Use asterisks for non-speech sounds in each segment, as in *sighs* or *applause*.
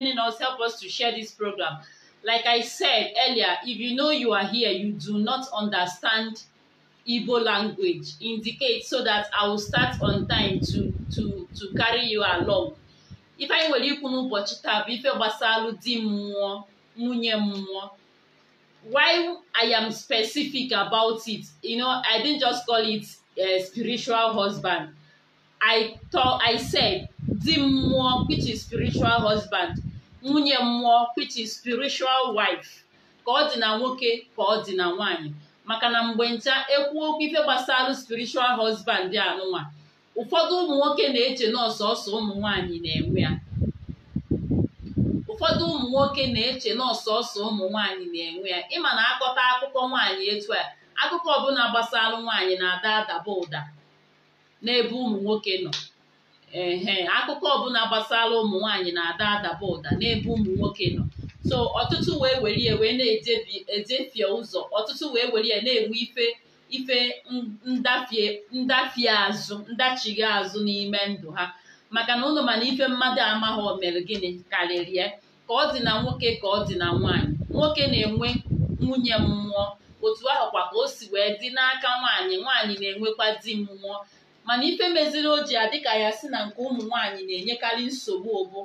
joining us. Help us to share this program. Like I said earlier, if you know you are here, you do not understand Igbo language, indicate so that I will start on time to, to, to carry you along. Ifeanyi nwere ikwu n'ụbọchị taa bụ ife gbasalụ di mmụọ nwunye mmụọ why I am specific about it you know I didn't just call it uh, spiritual husband I thought I said di mmụọ which is spiritual husband nwunye mmụọ which is spiritual wife ka ọ dị na nwoke ka ọ dị na nwaanyị maka na mgbe ncha ekwu okwu ife gbasara spiritual husband anụnwa ụfọdụ ụmụ na-eche na ọsọsọ ụmụ na-enwe ya ụfọdụ ụmụ nwoke na-eche na ọsọsọ ụmụ nwaanyị na-enwe ya ịma na akọta akụkọ nwaanyị etu a akụkọ ọbụla gbasara nwaanyị na-ada adaba ụda n'ebe ụmụ nwoke nọ ehe akụkọ ọbụla gbasara ụmụ nwaanyị na-ada adaba ụda n'ebe ụmụ nwoke nọ so ọtụtụ wee were ya wee na-ejefie ụzọ ọtụtụ wee were ya na-enwe ife ife ndafie azụ ndachighị azụ n'ime ndụ ha maka na ụlọ mana ife mmadụ amaghị o mere gịnị karịrị ya ka ọ dị na nwoke ka ọ dị na nwaanyị nwoke na-enwe nwunye mmụọ otu ahụkwa ka o si wee dị n'aka nwaanyị nwaanyị na-enwekwa di mmụọ mana ife meziri o ji adị ka ya si na nke ụmụ nwanyị na-enyekarị nsogbu ụbụ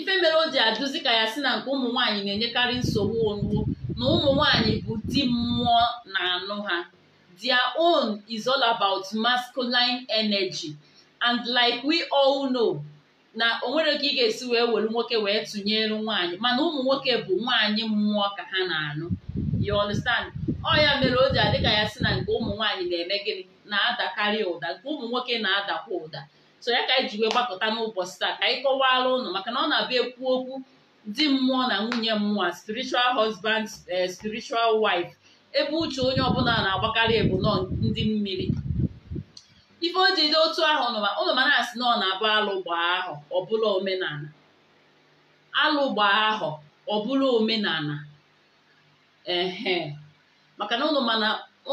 ife mere o ji ka ya si na nke ụmụ nwanyị na-enyekarị nsogbu onugbo na ụmụ nwanyị bụ di mmụọ na anụ ha their own is all about masculine energy and like we all know na o nwere ka ị ga-esi wee were nwoke wee tụnyere nwanyị mana ụmụ nwoke bụ nwanyị mmụọ ka ha na-anụ you understand ọ ya mere o ji adị ka ya si na nke ụmụ nwanyị na-eme gịnị na-adakarị ụda nke ụmụ nwoke na-adakwa ụda so ya ka anyị ji wee gbakọta n'ụbọchị taa ka anyị kọwaala ụnụ maka na ọ na-abịa ekwu okwu di mmụọ na nwunye mmụọ spiritual husband eh, spiritual wife ebe uche onye ọbụla na-agbakarị ebu nọ ndị mmiri ife o jide otu ahụ ụnụ ma na-asị na ọ na-abụ alụgba ahụ ọbụla omenala alụgbaa ahụ ọbụla omenala ehe maka na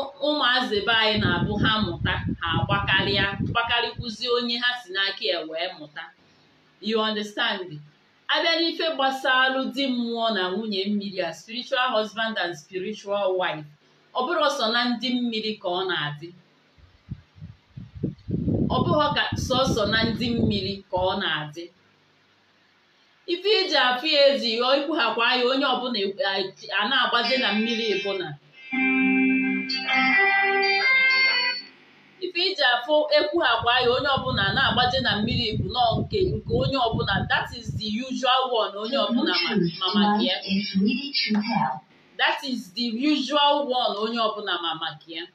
ụmụ be anyị na-abụ ha mụta ha agbakarịa gbakarịkwuzi onye ha si n'aka ya wee mụta you understand abịa n'ife alụ di mmụọ na nwunye mmiri a spiritual husband and spiritual wife ọ bụrụ ọsọ na ndị mmiri ka ọ na-adị na ndị mmiri ka ọ na-adị ife iji e afụ ya ezi ikwughakwa ya onye ọbụla a na-agbazi na mmiri bụ ife iji afụ ekwu ha ya onye ọbụla na-agbaje na mmiri bụ nọ nke nke onye ọbụla that is the usual one onye ọbụla ma maka ya that is the usual one onye ọbụla ma maka ya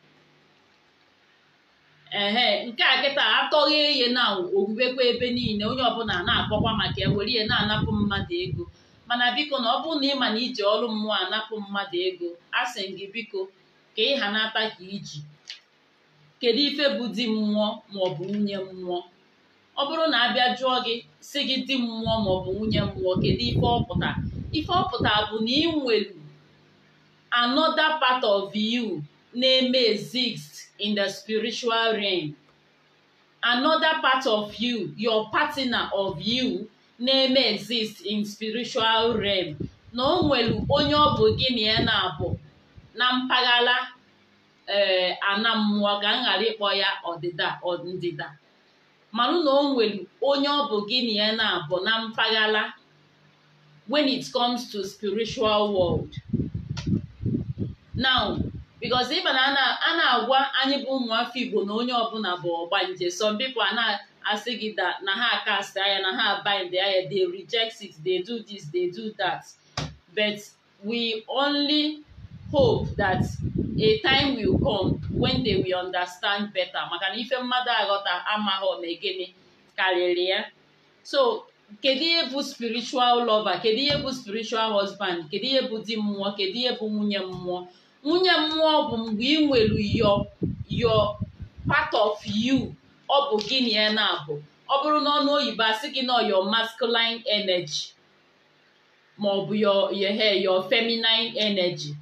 ehe nke a kịta atọghị ihe na owuwekwa ebe niile onye ọbụla na-akpọkwa maka ya were ihe na-anapụ mmadụ ego mana biko na ọ bụ na ị ma na iji ọrụ mmụọ anapụ mmadụ ego a sị gị biko ka ị ha nata ka iji kedu ife bụ di mmụọ maọbụ nwunye mmụọ ọ bụrụ na abịa jụọ gị si gị di mmụọ maọbụ nwunye mmụọ kedu ife ọpụta ife ọpụta bụ na ị nwere another part of you na-eme exist in the spiritual realm another part of you your partner of you na-eme exist in spiritual realm na o nwere onye ọ bụ gị na ya na-abụ na mpaghara ee eh, ana mmụọ ga ghara ịkpọ ya ọdịda ndịda manụ na o nwere onye ọ bụ gị na ya na-abụ na mpaghara when it comes to spiritual world now because ịba na a na-agwa anyị bụ ụmụafọ Igbo na onye ọbụla bụ ọgbanje some people a na-asị gị na ha cast aya na ha bind aya they reject it they do this they do that but we only hope that a time will come when they will understand better maka na ife mmadụ aghọta amaghọ na ege karịrị ya so kedu ihe bụ spiritual lover kedu ihe bụ spiritual husband kedu ihe bụ di mmụọ kedu ihe bụ nwunye mmụọ nwunye mmụọ bụ mgbe ị nwere yo yo part of you ọ bụ gịnị ya na-abụ ọ bụrụ na ọnụ oyibo asị gị na your masculine energy ma ọ bụ your your feminine energy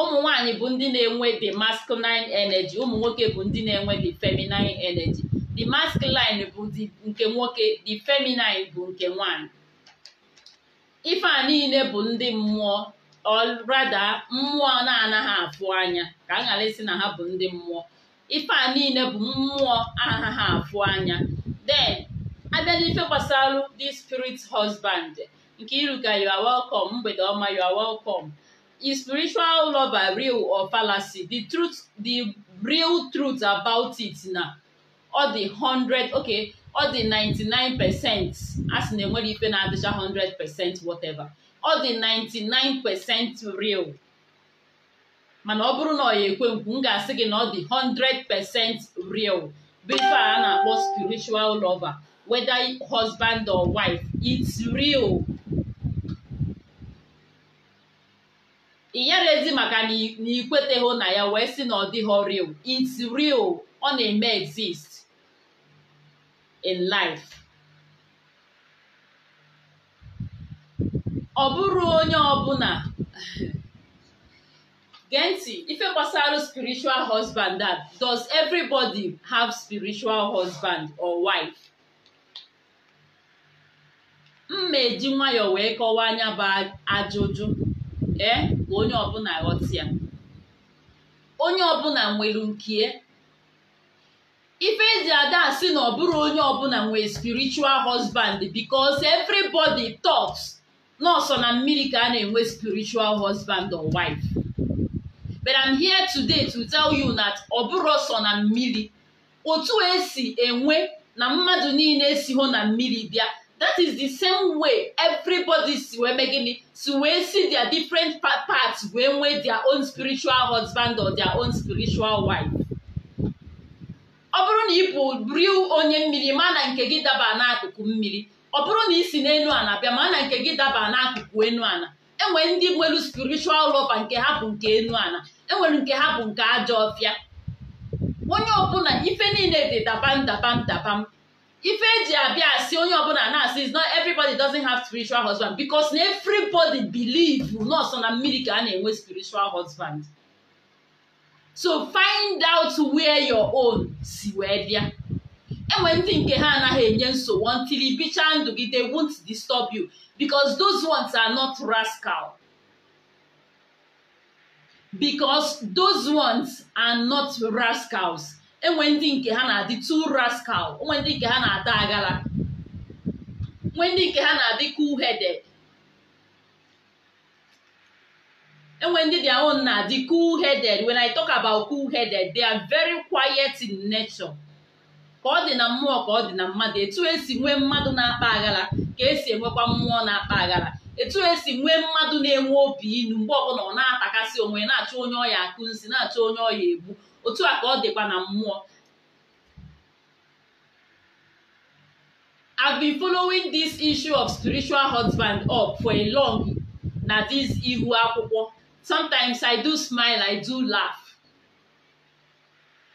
ụmụ nwanyị bụ ndị na-enwe the masculine energy ụmụ nwoke bụ ndị na-enwe the feminine energy the masculine bụ nke nwoke the feminine bụ nke nwanyị ife a niile bụ ndị mmụọ ọrada mmụọ na-anaghị afụ anya ka a ghara isi na ha bụ ndị mmụọ ife a niile bụ mmụọ anaghị afụ anya then abịa n'ife gbasara the spirit husband nke iruka you are welcome mgbede ọma you are welcome Is spiritual lover real or fallacy? The truth, the real truth about it na ọ dị hundred okay ọ dị 99 percent a na enwere ife na-adịcha 100 percent whatever ọ dị 99 percent real mana ọ bụrụ na ọ ya ekwe nkwu m ga-asị gị na ọ dị 100 percent real bụ a na-akpọ spiritual lover whether husband or wife it's real inyere ezi maka na ikweteghị na ya wee sị na ọ dịghị real it's real ọ na-eme exist in life ọ bụrụ onye ọbụla *sighs* gee ntị ife gbasara spiritual husband that does everybody have spiritual husband or wife mma eji nwayọọ wee kọwaa anya bụ ajụjụ ee eh? onye ọbụla ghọta ya onye ọbụla nwere nke ife eji ada asị na ọ onye ọbụla nwee spiritual husband because everybody talks nọọsọ na mmiri ka a na-enwe spiritual husband or wife but I'm here today to tell you that ọ bụrụ ọsọ na mmiri otu esi enwe na mmadụ niile si hụ na mmiri bịa that is the same way everybody si wee gịnị to wee see their different parts wee nwee their own spiritual husband or their own spiritual wife ọ bụrụ na bụ real onye mmiri ma na nke gị daba n'akụkụ mmiri ọ bụrụ na isi n'elu ana bịa ma na nke gị daba n'akụkụ enu ana enwe ndị nwere spiritual lover nke ha bụ nke enu ana enwere nke ha bụ nke ajọ ọfịa onye ọbụla ife niile dị dabam dabam dabam ife ji abịa asị onye ọbụla na-asị is not everybody doesn't have spiritual husband because na everybody believe nọọsọ na mmiri ka a na-enwe spiritual husband so find out where your own si wee bịa enwe ndị nke ha anaghị enye nsogbu until ibichaa ndụ gị they won't disturb you because those ones are not rascal because those ones are not rascals enwe ndị nke ha na-adị too rascal onwe ndị nke ha na ada agala nwe ndị nke ha na-adị cool headed enwe ndị their own na-adị cool headed when I talk about cool headed they are very quiet in nature ka ọ dị na mmụọ ka ọ dị na mmadụ etu esi nwee mmadụ na-akpa aghara ka esi enwekwa mmụọ na-akpa aghara etu esi nwee mmadụ na-enwe obi inu mgbe ọbụla ọ na-atakasị onwe na-achọ onye ọya akụ nsi na-achọ onye ọya egbu otu a ka ọ dịkwa na mmụọ I've been following this issue of spiritual husband up for a long na this ihu akwụkwọ sometimes I do smile I do laugh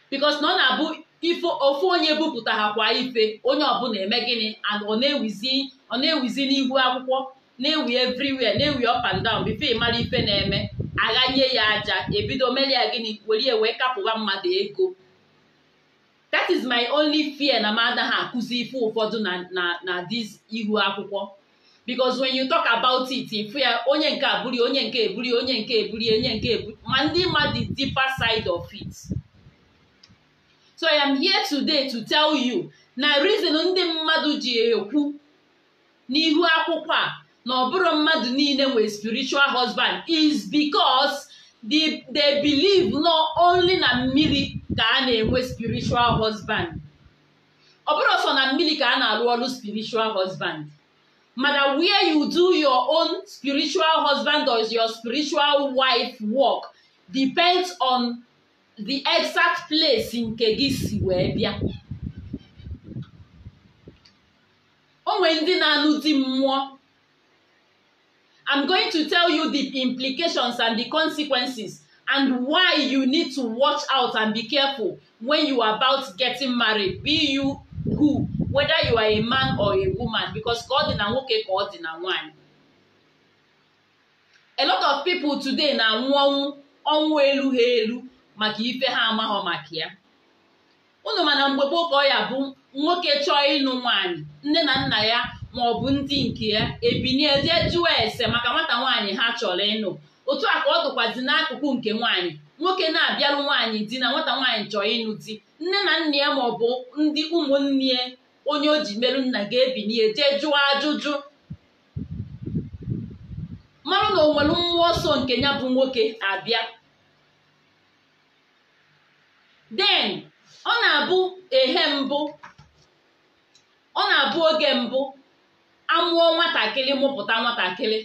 because na ọ na-abụ ifo ofu onye bupụtara kwa ife onye ọbụla eme gịnị and ọ na-ewizi na-ewizi n'ihu akwụkwọ na-ewi everywhere na-ewi up and down bifo ịmara ife na-eme aghanye ya aja ebido mere ya gịnị were wee kapụwa mmadụ ego that is my only fear na m anaghị akụzi ife ụfọdụ na na na this ihu akwụkwọ because when you talk about it ifu ya onye nke abụri onye nke eburi onye nke eburi onye nke eburi ma ndị mmadụ the deeper side of it so i am here today to tell you na reason ndị mmadụ ji ekwu n'ihu akwụkwọ a na ọ bụrụ mmadụ niile nwere spiritual husband is because they believe no only na mmiri ka a na-enwe spiritual husband ọ bụrụ sọ na mmiri ka a na-arụ ọrụ spiritual husband mana where you do your own spiritual husband or your spiritual wife work depends on the exact place nke gị si wee bịa o nwere ndị na-anụ dị mmụọ I'm going to tell you the implications and the consequences and why you need to watch out and be careful when you are about getting married, be you who, whether you are a man or a woman, because ka ọ dị na nwoke ka ọ dị na nwanyị. A lot of people today na-anwụ ọnwụ ọnwụ elu ha elu maka ife ha amaghọ maka ya. Unu mana mgbe gboo ka ya bụ nwoke chọọ ịnụ nwanyị nne na nna ya ma ọ bụ ndị nke ya ebinie jee jụọ ese maka nwata nwaanyị ha chọrọ ịnụ otu a ka ọ dụkwazi n'akụkụ nke nwaanyị nwoke na-abịarụ nwaanyị di na nwata nwaanyị chọrọ ịnụ di nne na nna ya ma ọ bụ ndị ụmụnne ya onye o ji merụ nna ga-ebinie jee jụọ ajụjụ mara na o nwere mmụọ ọsọ nke ya bụ nwoke abịa den ọ na-abụ ehe mbụ ọ na-abụ oge mbụ amụọ nwatakịrị mụpụta nwatakịrị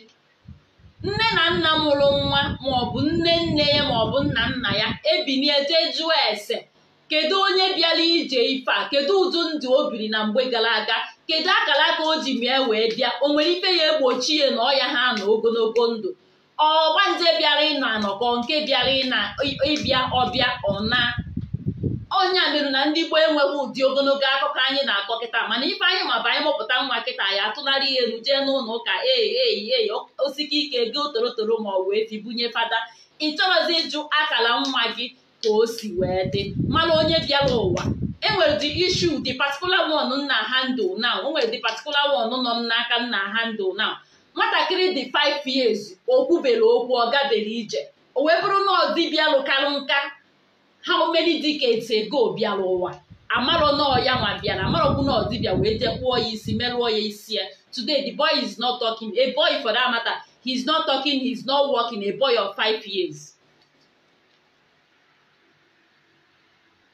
nne na nna mụrụ nwa maọbụ nne nne ya maọbụ nna nna ya ebinie jee jụọ ese kedu onye bịara ije ife a kedu ụdụ ndụ o biri na mgbe gara aga kedu akara aka o ji mee wee bịa o nwere ife ya egbochi ya na ọya ha nọ ogologo ndụ ọgbanje bịara ịna anọkọ nke bịara ịna ịbịa ọbịa ọna ọnya merụ na ndị gboo enweghị ụdị ogologo akụkọ anyị na-akọ kịta mana ife anyị ma bụ anyị mụpụta nwa kịta ya atụnarị ihe elu jee n'ụlọ ụka e ei osike ike go torotoro ma ọ wee fi bunye fada ị chọrọzi ịjụ akara nwa gị ka o si wee dị mana onye bịara ụwa enwere dị ishu dị patikular one nna handle na onwere nwere dị patikular one nọ n'aka nna handụ na nwatakịrị dị 5 years o kwubere okwu ọ gabere ije o wee bụrụ na ọ dịbịa lụkarụ nka how many decades ago bịara ụwa amarọ nọọ ya nwa bịara amarọkwu na ọdịbịa wee ya isi merụọ ya isi ya today the boy is not talking a boy for that matter he is not talking he is not working a boy of five years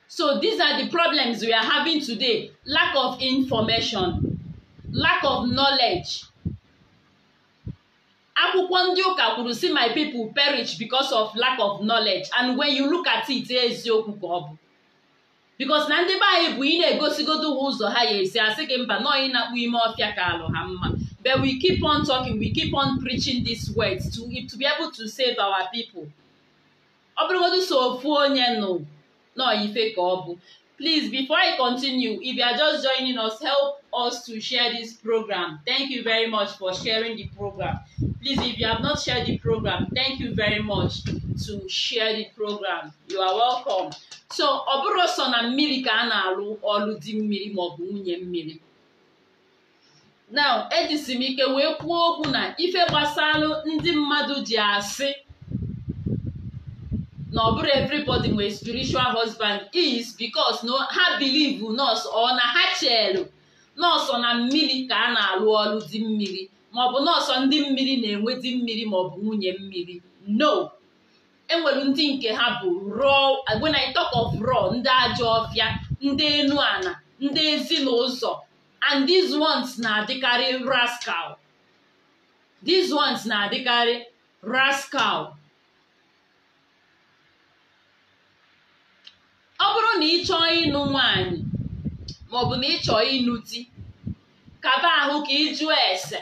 so these are the problems we are having today lack of information lack of knowledge akwụkwọ ndị ụka kwuru si my people perish because of lack of knowledge and when you look at it eziokwu ka ọ bụ because na ndị be anyị bụ ị na-egosigodo ha ụzọ ha ya esi asị gị mba nọọ na-akpụ ime ọfịa ka alụ ha mma but we keep on talking we keep on preaching these words to, to be able to save our people ọ bụrụgodu so ofu onye nọ nọọ ife ka ọ bụ please before I continue if you are just joining us help us to share this program thank you very much for sharing the program Please, if you have not shared the program, thank you very much to share the program. You are welcome. So, ọ bụrụ sọ na mmiri ka a na-alụ ọlụ di mmiri maọbụ nwunye mmiri. Now, ejisi m ike wee kwuo okwu na ife gbasalụ ndị mmadụ ji asị na ọ bụrụ everybody nwere spiritual husband is because no ha believe nọọsụ ọ na ha chelu nọọsụ na mmiri ka a na-alụ ọlụ di mmiri maọbụ nọọsọ ndị mmiri na mmiri ma mmiri maọbụ nwunye mmiri no enwere ndị nke ha bụ raw when I talk of ndị ajọ ọfịa ndị enu ana ndị ezinụzọ and these ones na-adịkarị rascal these ones na-adịkarị rascal ọ bụrụ na ị chọọ ịnụ nwaanyị maọbụ na ị chọọ ịnụ di kaba ahụ ka ị jụọ ese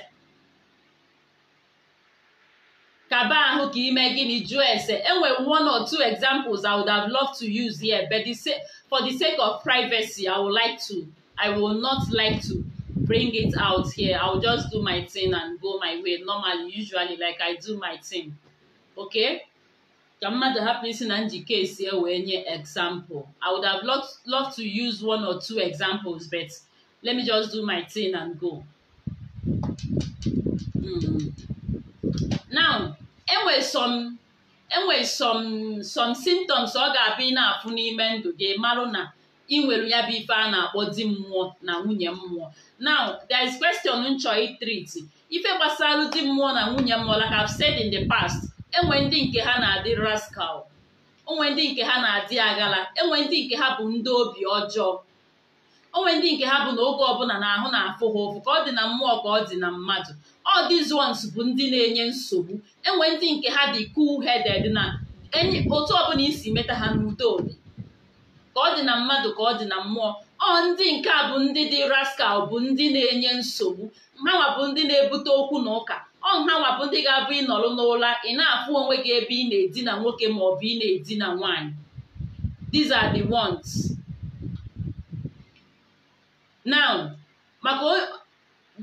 kaba ahụ ka ime gịnị jụọ ese enwere one or two examples i would have loved to use here but the sake, for the sake of privacy i would like to i will not like to bring it out here i will just do my thing and go my way normally usually like i do my thing okay ka mmadụ hapụ isi na njike esi e wee nye example i would have loved, loved to use one or two examples but let me just do my thing and go mm. now enwe some enwe some symptoms ọ ga-abụ ị na-afụ n'ime ndụ gị marụ na ị nwere ya bụ ife a na-akpọ di mmụọ na nwunye mmụọ now there is question m chọọ ife gbasara di mmụọ na nwunye mmụọ like I've said in the past enwe ndị nke ha na-adị rascal onwe ndị nke ha na-adị agala enwe ndị nke ha bụ ndị obi ọjọọ onwe ndị nke ha bụ na oge ọbụla na ahụ na-afụ ha ụfụ ka ọ dị na mmụọ ka ọ dị na mmadụ all bụ ndị na-enye nsogbu enwe ndị nke ha dị cool headed na enyi otu ọbụla isi meta ha n'udo obi ka ọ dị na mmadụ ka ọ dị na mmụọ ọ ndị nke a bụ ndị dị rascal bụ ndị na-enye nsogbu hanwa bụ ndị na-ebute okwu na ụka ọ hanwa bụ ndị ga-abụ ịnọrọ n'ụra ị na-afụ onwe gị ebe ị na-edina nwoke ma ọ bụ ị na-edina nwaanyị these are the ones now maka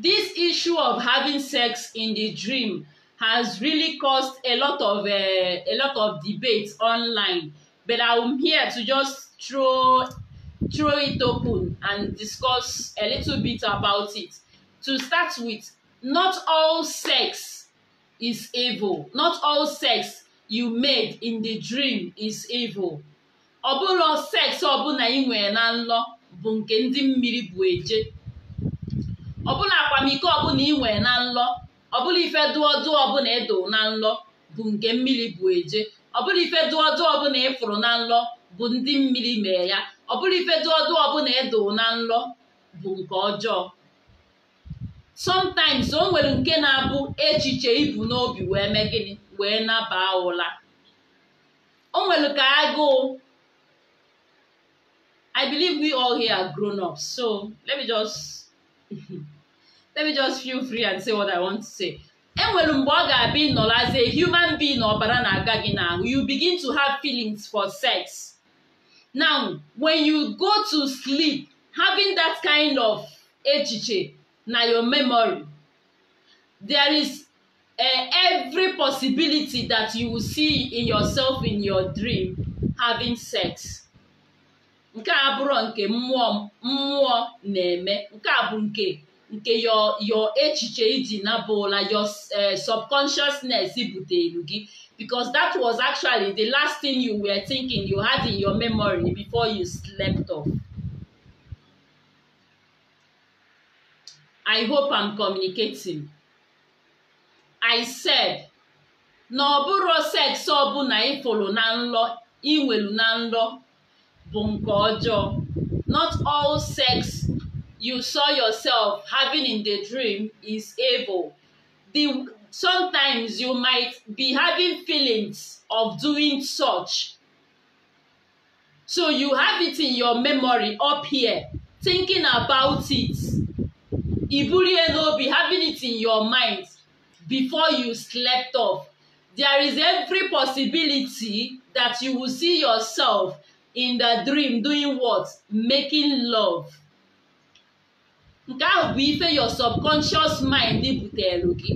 this issue of having sex in the dream has really caused a lot of uh, a lot of debates online but i'm here to just throw throw it open and discuss a little bit about it to start with not all sex is evil not all sex you made in the dream is evil ọ bụrụ sex ọbụla ị nwere na nlọ bụ nke ndị mmiri bụ eje ọbụla akwamiko ọbụla ị na nlọ ọbụla ife dụọ dụọ ọbụla edo na nlọ bụ nke mmiri bụ eje ọbụla ife dụọ dụọ ọbụla ịfụrụ e na nlọ bụ ndị mmiri mee ya ọbụla ife dụọ dụọ ọbụla edo na nlọ bụ nke ọjọọ sometimes o nwere nke na-abụ echiche ibu n'obi wee mee gịnị wee naba ụla o nwere ka agụụ I believe we all here are grown up so let me just *laughs* let me just feel free and say what I want to say. enwere mgbe ọ ga-abịa ịnọrọ as a human being ọbara na-aga gị n'ahụ you begin to have feelings for sex now when you go to sleep having that kind of echiche na your memory there is eh, every possibility that you will see in yourself in your dream having sex nke a nke mmụọ mmụọ na-eme nke a bụ nke nke yo yo echiche iji nabụla your eh, subconsciousness butere gị because that was actually the last thing you were thinking you had in your memory before you slept off. I hope am communicating. I said na ọ bụrụ seks ọbụla na nlọ inwelu na nlọ bụ nke ọjọọ not all sex you saw yourself having in the dream is evil. The, sometimes you might be having feelings of doing such. So you have it in your memory up here, thinking about it. Iburiye no be having it in your mind before you slept off. There is every possibility that you will see yourself in the dream doing what? Making love. nke ahụ bụ ife your subconscious mind butere gị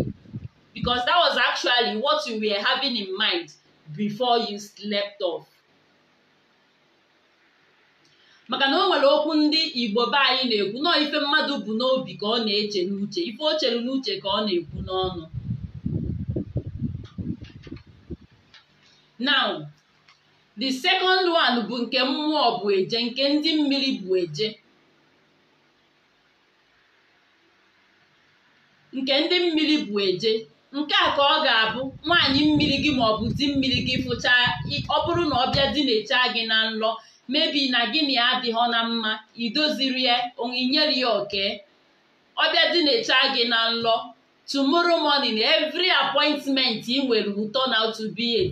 because that was actually what you were having in mind before you slept off. maka na o nwere okwu ndị igbo be anyị na-ekwu nọọ ife mmadụ bụ n'obi ka ọ na-eche n'uche ife o chere n'uche ka ọ na-ekwu n'ọnụ now the second one bụ nke mmụọ bụ eje nke ndị mmiri bụ eje nke ndị mmiri bụ eje nke a ka ọ ga-abụ nwaanyị mmiri gị maọbụ ọ di mmiri gị fụchaa ọ bụrụ na ọ bịa di na-echa gị na nlọ mebi na gị na na mma idoziri ya onyinyere ya oke ọ bịa di na-echa gị na nlọ tomorrow morning every appointment ị nwere ụtọ out to be a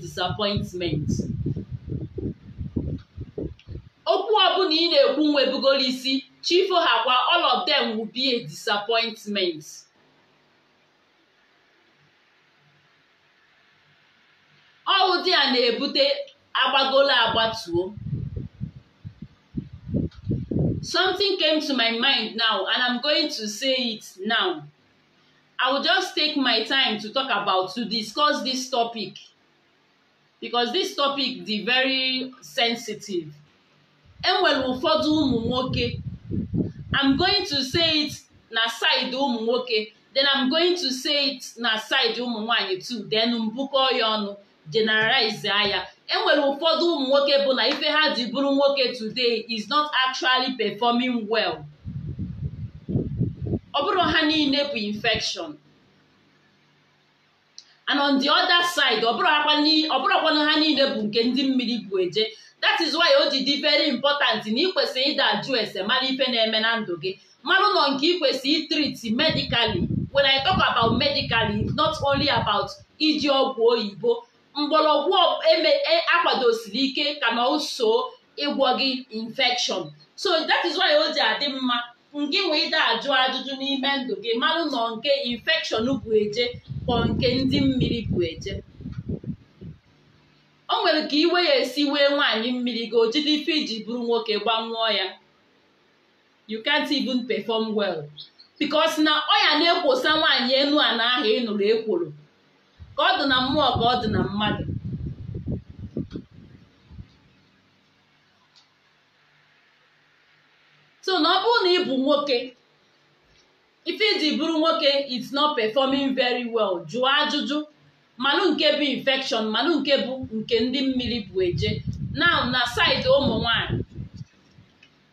okwu ọbụla ị na-ekwu nwebugoro isi chifo hakwa all them will be a disappointment ọwụ di ya na-ebute agbagolo agbatuo something came to my mind now and i'm going to say it now i will just take my time to talk about to discuss this topic because this topic dị very sensitive enwere ụfọdụ ụmụ nwoke i'm going to say it na side ụmụ nwoke then i'm going to say it na side ụmụ nwanyị too then mbukọ ya ọnụ generalize anya enwere ụfọdụ ụmụ nwoke bụ na ife ha ji bụrụ nwoke today is not actually performing well ọ bụrụ ha niile bụ infection and on the other side ọ bụrụkwanụ ha niile bụ nke ndị mmiri bụ eje that is why o ji dị very important na ị kwesịrị ịda ajụ ese mara ife na-eme na ndụ gị mara ụlọ nke ị kwesịrị medically when I talk about medically not only about iji ọgwụ oyibo mgbọrọgwụ e e akwadosiri ike ka na oso ịgwọ gị infekshọn so that is why o ji adị mma ngị wee ide ajụ ajụjụ n'ime ndụ gị marụ nọ nke infekshọn bụ eje kpọ nke ndị mmiri bụ eje o nwere ka iwe ya esi wee nwaanyị mmiri gị o jide ife iji bụrụ nwoke gbanwụọ ya you can't even perform well because na ọya ya na-ekwosa nwaanyị enu a ahụ ị nụrụ ekworo ka ọ dị na mmụọ ka ọ dị na mmadụ so na ọ bụrụ na ị bụ nwoke ife iji e bụrụ nwoke it's not performing very well jụọ ajụjụ manụ nke bụ infection manụ nke bụ nke ndị mmiri bụ eje now na side ụmụ nwanyị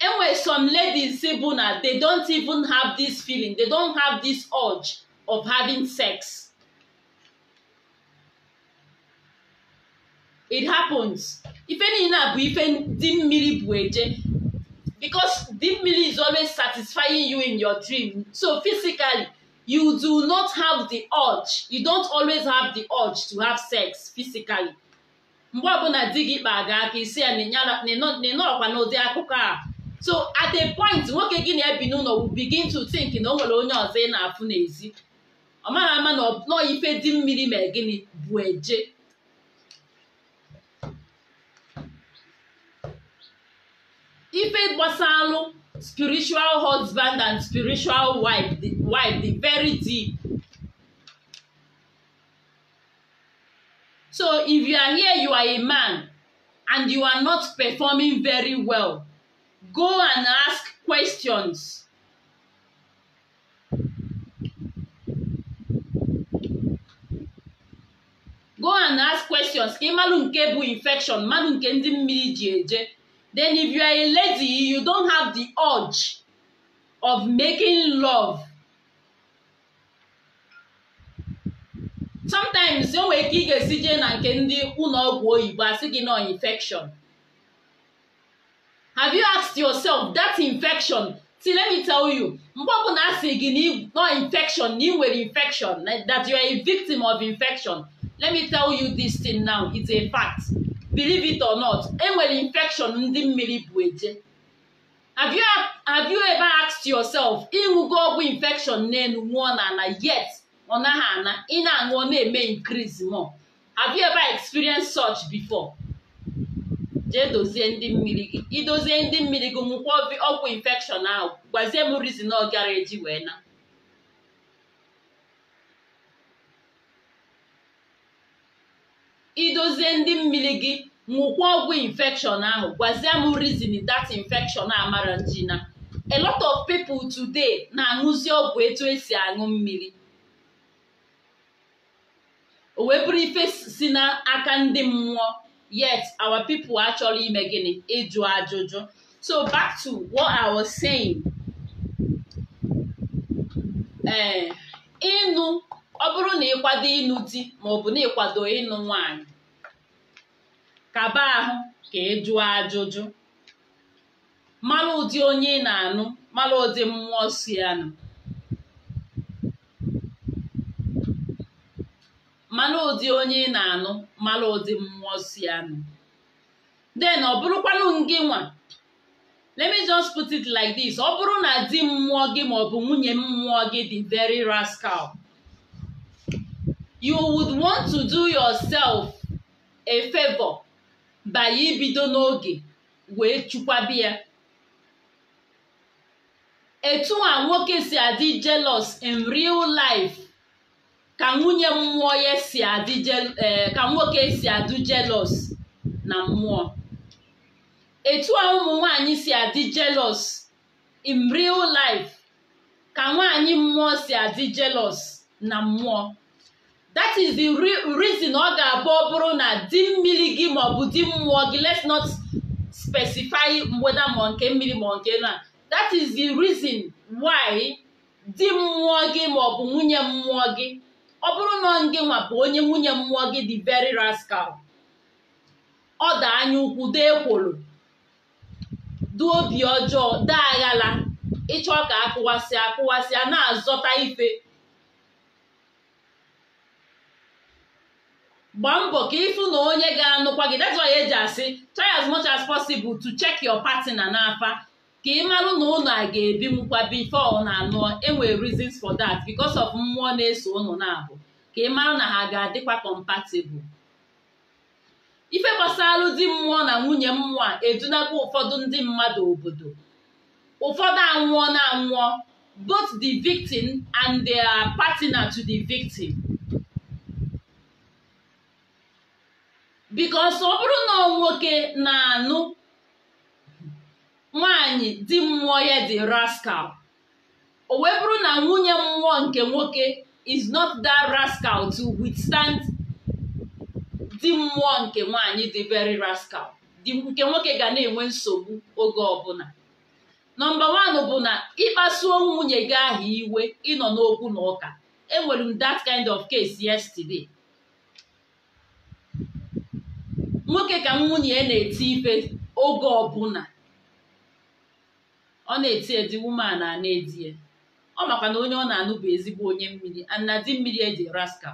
enwere some ladies bụ na they don't even have this feeling they don't have this urge of having sex it happens ife niile a bụ ife dị mmiri bụ eje because deep mmiri is always satisfying you in your dream. So physically, you do not have the urge. You don't always have the urge to have sex physically. Mgbe ọbụla di gị kpa ga aka isi ya nọrọkwa n'ụdị akụkọ a. So at a point nwoke gị na-ebi n'ụlọ will begin to think na o nwere onye ọzọ ị na-afụ n'ezi. Ọ mara ama na ife dị mmiri ma gịnị bụ eje. ife gbasalụ spiritual husband and spiritual wife the, wife the very deep so if you are here you are a man and you are not performing very well go and ask questions go and ask questions ka infection mmadụ nke ndị then if you are a lady you don't have the urge of making love sometimes enwere ike ị ga-esi jee na nke ndị ụlọ ọgwụ oyibo asị gị nọ infection have you asked yourself that infection see let me tell you mgbe ọbụla asị gị nọ infection na ị nwere infection that you are a victim of infection let me tell you this thing now it's a fact believe it or not enwere infection ndị mmiri bụ eje have you ever asked yourself ịṅụgo ọgwụ infection n'elu nwụọ na ana yet ọ naghị ana ị na-aṅụọ na-eme increase more have you ever experienced such before jee dozie ndị mmiri gị idozie ndị mmiri gị nwụkwa ọgwụ infection ahụ gwazie m reason ọ gara eji wee na idozie ndị mmiri gị ṅụkwa ọgwụ infekshọn ahụ gwazie m reason a infection amara njina a lot of people today na-aṅụzi ọgwụ etu esi aṅụ mmiri o wee bụrụ ife si n'aka ndị mmụọ yet our people achọrọ ime gịnị ịjụ ajụjụ so back to what I was saying eh, ịnụ ọ bụrụ na ịkwado ịnụ di maọbụ na ịkwado ịnụ nwaanyị kaba ahụ ka ị jụọ ajụjụ mara ụdị onye ị na-anụ mara ụdị mmụọ si anụ mara ụdị onye ị na-anụ mara ụdị mmụọ si anụ den ọ bụrụkwanụ gị nwa let me just put it like this ọ bụrụ na di mmụọ gị maọbụ nwunye mmụọ gị dị very rascal you would want to do yourself a favor by ibido n'oge wee chụkwabi ya etu a nwoke si adị jealous in real life ka nwunye mmụọ ya si adị eh, ka nwoke si adị jealous na mmụọ etu a ụmụ nwanyị si adị jealous in real life ka nwaanyị mmụọ si adị jealous na mmụọ that is the reason ọ ga-abụ ọ bụrụ na di mmiri gị maọbụ di mmụọ gị let's not specify mgbeda ma nke mmiri ma nke na that is the reason why di mmụọ gị maọbụ nwunye mmụọ gị ọ bụrụ na gị nwa bụ onye nwunye mmụọ gị di very rascal ọ da anya ukwu dee ekworo du obi ọjọọ dee aghala ịchọ ka akụwasị akụwasị na-azọta ife gbaa mbọ ka ịfụ na onye ga-anụkwa gị that's why eji asị try as much as possible to check your partner n'afa ka ị marụ na unu a ga-ebi mkwa before na anụ enwere reasons for that because of mmụọ na-eso ụlọ na-abụ ka ị marụ na ha ga-adịkwa compatible ife gbasara di mmụọ na nwunye mmụọ a edunakwa ụfọdụ ndị mmadụ obodo ụfọdụ anwụọ na anwụọ both the victim and their partner to the victim bikos ọ bụrụ na nwoke na-anụ nwanyị di mmụọ ya dị rascal o wee bụrụ na nwunye mmụọ nke nwoke is not that rascal to withstand di mmụọ nke nwanyị dị very rascal nke nwoke ga na-enwe nsogbu oge ọbụla nọmba wan bụ na ịkpasuo nwunye gị ahụ iwe ịnọ n'okwu na ụka enwere m that kind of case yesterday nwoke ka nwunye ya na-eti ife oge ọbụla ọ na-eti edi woman a na-edi ya ọ makwa na onye ọ na-anụ bụ ezigbo onye mmiri ana di mmiri eji raska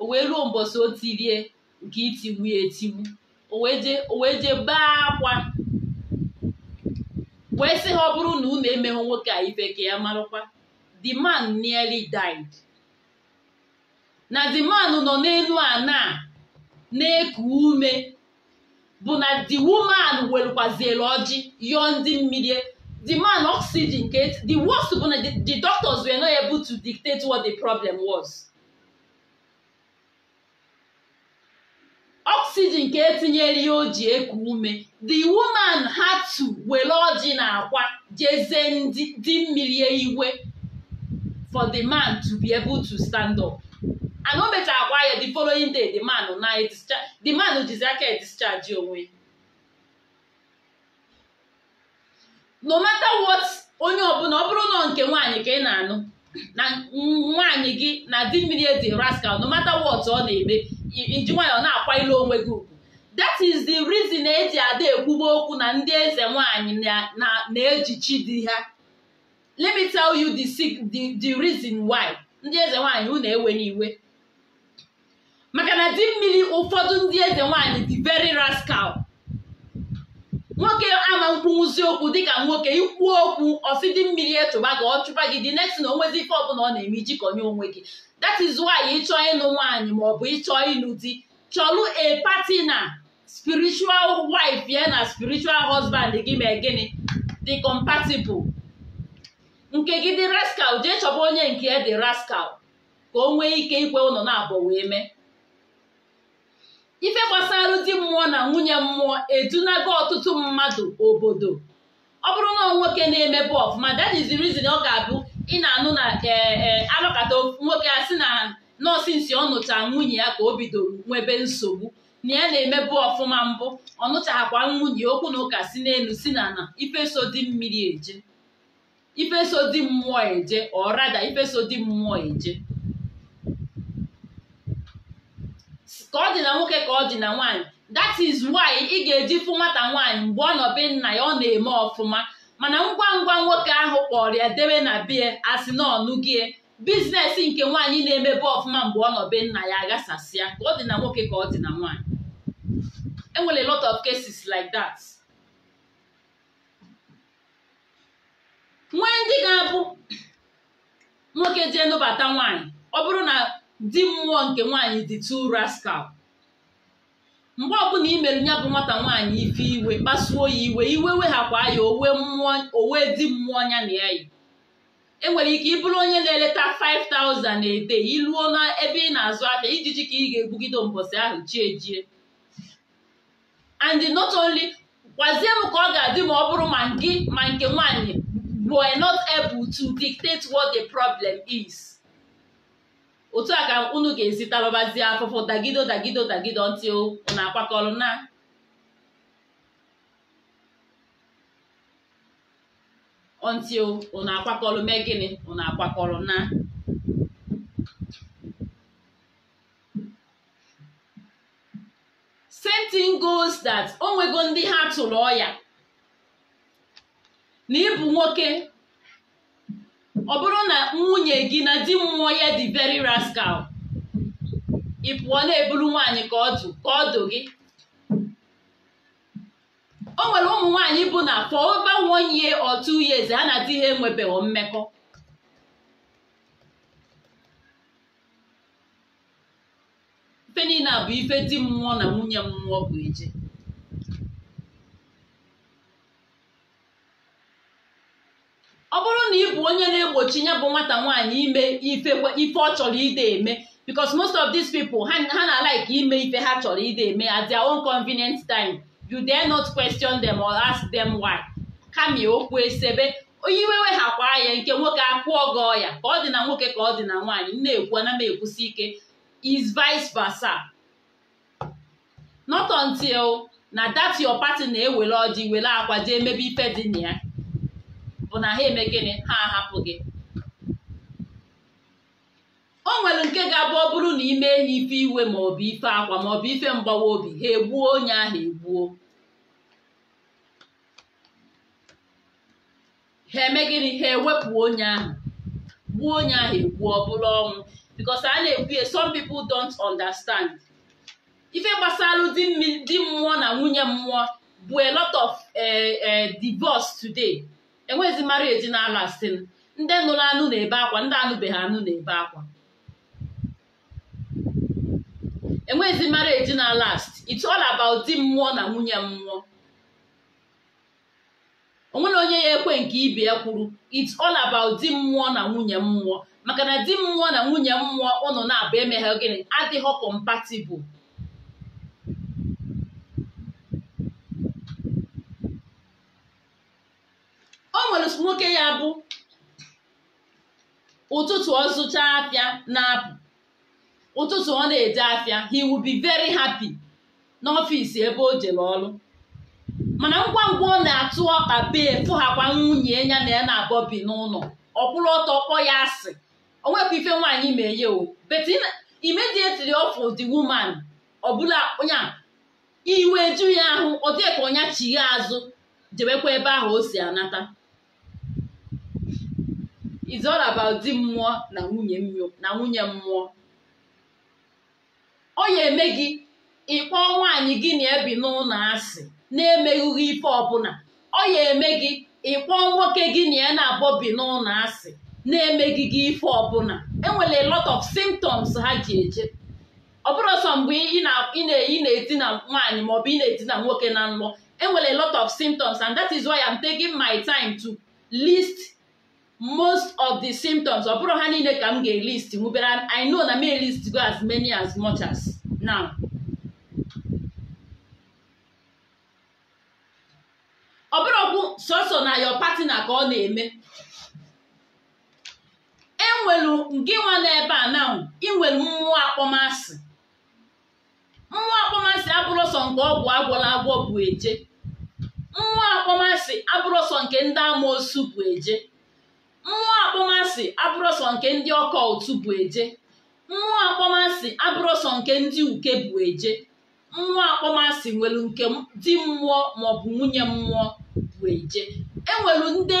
o wee ruo mbọsị o tirie nke itiwu ya etiwu o wee je baa akwa wee sị ha ọ bụrụ na unu emeghụ nwoke a ife ka ya marụkwa the man nearly died na the man nọ n'elu ana na-eku ume bụ na the woman welukwazielu ọjị yọọ ndị mmiri e. the man oxygen ka the worst bụ na the doctors were not able to dictate what the problem was oxygen ka etinyere ya o eku ume the woman had to were ọjị na akwa jeze ndị mmiri e iwe for the man to be able to stand up. ana akwa ya the following day the man na e the man jizi aka edischarge onwe no matter what onye ọbụla ọ bụrụ nọ nke nwaanyị ka ị na-anụ na nwaanyị gị na di mmiri edi rascal no matter what ọ na-eme iji nwaanyị ọ na-akwa ilu onwe gị ugwu that is the reason eji ada ekwugbo okwu na ndị eze nwaanyị na-eji chi di ha let me tell you the the the reason why ndị eze nwaanyị hụ na ewe n'iwe maka na di mmiri ụfọdụ ndị eze nwaanyị dị very rascal nwoke ama mkpunwụzi okwu dịka nwoke ikwu okwu ọsị dị mmiri etụba gị ọ chụpa gị dị next na onwezi ife ọbụla ọ na-eme ijikọnye onwe gị that is why ịchọọ ịnụ nwaanyị maọbụ ịchọọ ịlụ di chọlụ a na spiritual wife ya na spiritual husband gị ma gịnị dị compatible nke gị dị rascal jee chọba onye nke dị rascal ka o nwee ike ikwe ụlọ na-abọ wee mee ife gbasara di mmụọ na nwunye mmụọ edunago ọtụtụ mmadụ obodo ọ bụrụ na nwoke na-emebu ọfụma that is ọ ga-abụ ị na-anụ na e, e, alụkata nwoke a sị na nọọsụ nsi ọ nụcha nwunye ya ka o bidoro nwebe nsogbu na ya na-emebu ọfụma mbụ ọ nụchaghakwa nwunye okwu na ụka si n'elu si na na ifeso di mmiri eje ifeso di mmụọ eje ọrada rada ifeso di mmụọ eje ka ọ dị na nwoke ka ọ dị na nwaanyị that is why ị ga-eji fụ nwata nwaanyị mgbe ọ nna ya ọ na-eme ọfụma mana ngwa ngwa nwoke ahụ kpọrọ ya debe na bie asị na ọnụgie biznes nke nwaanyị na-emebe ọfụma mgbe ọ nọ nna ya aghasasịa ka ọ dị na nwoke ka ọ dị na nwaanyị enwere lot of cases like that nwee ndị ga-abụ nwoke jee nụbata nwaanyị ọ bụrụ na di mmụọ nke nwaanyị dị two rascal mgbe ọbụla i meru ya bụ nwata nwaanyị ife iwe kpasuo ya iwe iwe weghakwa ya owe mmụọ owe di mmụọ nya na ya e enwere ike ịbụrụ onye na-eleta 5000 ede iluo na ebe ị na-azụ aka ijiji ka ị ga-egbugide mbọsị ahụ chie jie and not only gwazie m ka ọ ga-adị ma ọ bụrụ ma gị ma nke nwaanyị bụ not able to dictate what the problem is otu a ka unu ga-ezita babazie afụfụ dagido dagido dagido ntị unu akwakọrọ na ntị unu akwakọrọ mee gịnị unu akwakọrọ na same thing goes that onwego ndị ha tụrụ ọya na ịbụ nwoke ọ bụrụ na nwunye gị na di mmụọ ya dị very rascal ị pụọ na-eburu nwaanyị ka ọ dụ ka ọ gị o nwere ụmụ nwaanyị bụ na for over one year or two ha na adịghị ha enwebeghị mmekọ ife bụ ife di mmụọ na nwunye mmụọ bụ eje ọ bụrụ na ị bụ onye na-egbochi ya bụ nwata nwaanyị ime ife ọ chọrọ ide eme because most of these people ha na-alaik ime ife ha chọrọ ide eme at their own convenient time you dare not question them or ask them why kamie okwu esebe iwewe ha kwaa ya nke nwoke akwụọ gọọ ya ka ọ dị na nwoke ka ọ dị na nwaanyị na-ekwu ana m ekwusi ike is vice versa not until na that your party na-ewere ọjị were akwa jee mebe ife dị na ya bụ na ha eme gịnị ha ahapụ gị o nwere nke ga-abụ ọ bụrụ na ime ha ife iwe maọbụ ife akwa maọbụ ife mgbawa obi ha egbuo onye ahụ egbuo ha eme gịnị ha ewepụ onye ahụ gbuo onye ahụ egbuo ọ bụrụ ọnwụ because a na-ekwu ya some people don't understand ife gbasara di mmụọ na nwunye mmụọ bụ a lot of eh, eh, divorce today enwezi marriage na-alụ asị ndị nụrụ anụ na-ebe akwa ndị anụbeghị anụ na-ebe akwa enwezi marriage na last it's all about di mmụọ na nwunye mmụọ onwere onye ya ekwe nke ibe ya kwuru it's all about di mmụọ na nwunye mmụọ maka na di mmụọ na nwunye mmụọ ụnụ na-abụ emeghe gịnị adịghị compatible nwere nwoke ya bụ ụtụtụ ọ zụcha afịa na-apụ ụtụtụ ọ na-eje afịa he will be very happy n'ọfịs ebe o jere ọrụ mana ngwa ngwa ọ na-atụ ọkpa bee fụghakwa nwunye ya na ya na abọbi bi n'ụlọ ọkwụrụ ọtọ kpọ ya asị onwepụ ife nwaanyị ma ya o but immediately ọfụ the woman ọbụla onye iwe ju ya ahụ ọ dịka ọnya chigha azụ jebekwa ebe ahụ o si anata is all about di mmụọ na nwunye na nwunye mmụọ ọ ya eme gị ịkpọ nwaanyị gị na ebi n'ụlọ asị na-emeghị ife ọbụla ọ ya eme gị ịkpọ nwoke gị na ya na-abọbi n'ụlọ asị na-emeghị gị ife ọbụla enwere lot of symptoms ha ji eje ọ bụrụ sọ mgbe ị na-edina nwaanyị maọbụ ị na-edina nwoke na nlọ enwere lot of symptoms and that is why I'm taking my time to list most of the symptoms ọ bụrụ ha niile ka m ga-elist nwubere I know na m elist go as many as much as now ọ bụrụ bụrụkwu sọsọ na your partner ka ọ na-eme enwelu nke nwa n'ebe a na inwelu mmụọ akpọmasị mmụọ akpọmasị abụrụ nke ọgwụ agwọla agwọ bụ eje mmụọ akpọmasị abụrụsọ nke ndị amoosu bụ eje mmụọ akpọmasị abụrọsọ nke ndị ọkọ ụtụ bụ eje mmụọ akpọmasị abụrọsọ nke ndị uke bụ eje mmụọ akpọmasị nwere nke di mmụọ maọbụ nwunye mmụọ bụ eje enwere ndị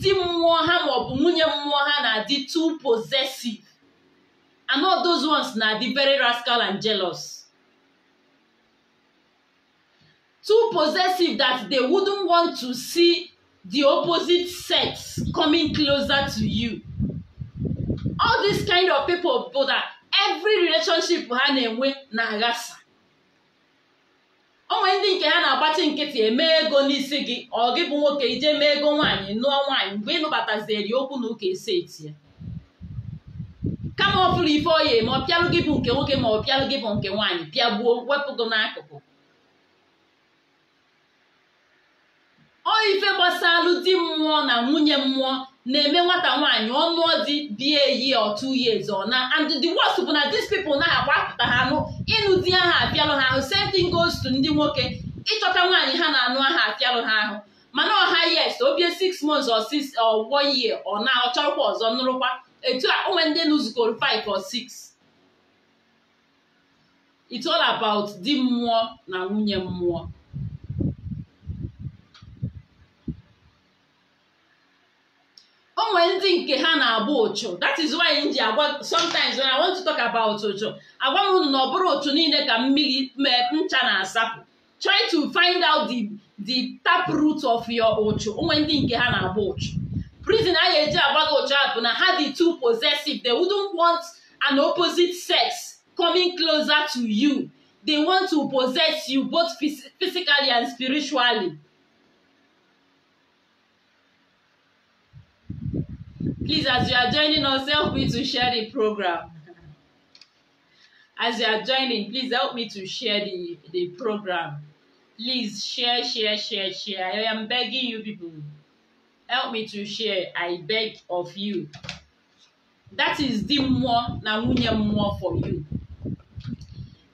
di mmụọ ha maọbụ nwunye mmụọ ha na-adị too possessive and all those ones na-adị very rascal and jealous too possessive that they wouldn't want to see the opposite sex coming closer to you all this kind of people bụ that every relationship ha na-enwe na-aghasa onwe ndị nke ha na-agbachi nkịtị eme ego n'isi gị ọ gị bụ nwoke ije mee ego nwaanyị nụọ nwaanyị mgbe ịnụbatazieri okwu na ụka esi eti ya kama ọ bụrụ ife ma ọ pịalụ gị bụ nke nwoke ma ọ pịalụ gị bụ nke nwaanyị pịagbuo wepụ gị n'akụkụ ọ ife gbasalụ di mmụọ na nwunye mmụọ na-eme nwata nwaanyị ọnụ di bie eyi otu years ọ na and the worst bụ na these people na agba apụta ha anụ ịnụ di aha apịalụ ha ahụ same goes to ndị nwoke ịchọta nwaanyị ha na-anụ aha apịalụ ha ahụ mana ọha yes obie six months or six or one ọ na ọ ọzọ nụrụkwa etu a onwe ndị nụzukọrọ five or six it's all about di mmụọ na nwunye mmụọ nwere ndị nke ha na-abụ ụchụ that is why m ji agwa sometimes when I want to talk about ụchụ agwa m unu na ọ bụrụ ụchụ niile ka mmiri ncha na-asapụ try to find out the the tap root of your ụchụ onwe ndị nke ha na-abụ ụchụ reason a ga-eji agwa gị ụchụ ahụ bụ na ha the two possessive they wouldn't want an opposite sex coming closer to you they want to possess you both physically and spiritually Please, as you are joining us, help me to share the program. As you are joining, please help me to share the, the program. Please share, share, share, share. I am begging you people. Help me to share. I beg of you. That is di mmụọ na nwunye mmụọ for you.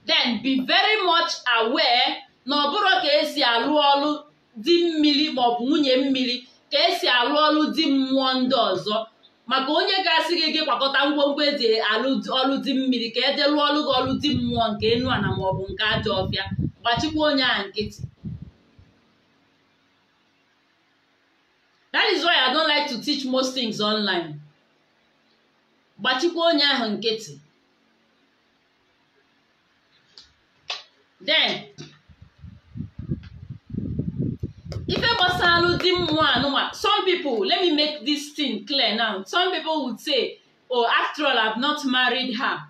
Then be very much aware na ọ bụrụ ka esi alụ ọlụ di mmiri maọbụ nwunye mmiri ka esi alụ ọlụ di mmụọ ndị ọzọ maka onye ga-asị gị gị kwakọta ngwongwo eji ọlụ di mmiri ka eje ọlụ gị ọlụ dị mmụọ nke enu ana maọbụ nke ajọ ọbịa gbachikwa onye a nkịtị that is why I don't like to teach most things online gbachikwa onye ahụ nkịtị then Ife Bosalu one. Some people, let me make this thing clear now. Some people would say, oh, after all, I've not married her.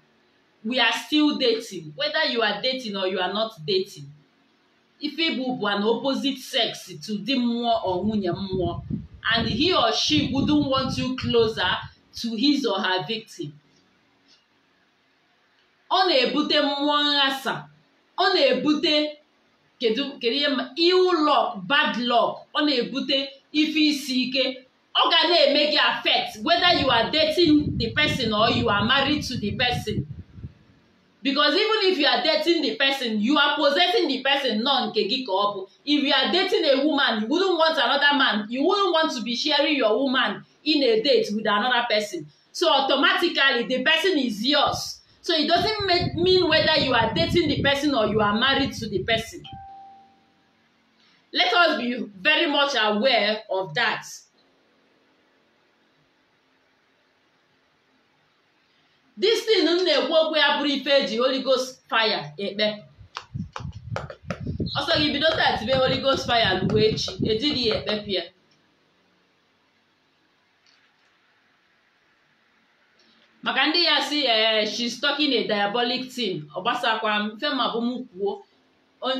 We are still dating. Whether you are dating or you are not dating. Ife bụ an opposite sex to di mmụọ or nwunye mmụọ. And he or she wouldn't want you closer to his or her victim. Ọ na-ebute mmụọ nghasa. Ọ na-ebute kedu kedu ihe ma ill luck bad luck ọ na-ebute ife isi ike ọ ga na-eme gị affect whether you are dating the person or you are married to the person because even if you are dating the person you are possessing the person nọ nke gị ka ọ bụ if you are dating a woman you wouldn't want another man you wouldn't want to be sharing your woman in a date with another person so automatically the person is yours so it doesn't mean whether you are dating the person or you are married to the person Let us be very much aware of that. This thing m na-ekwu okwu ya bụrụ ife eji Holy fire ekpe ọsọ gị bido taa tibe Holy fire ruo echi ejiri ya ekpepụ pịa. maka ndị ya si ee eh, she's talking a diabolic team, ọ gbasakwa m mfe bụ m kwuo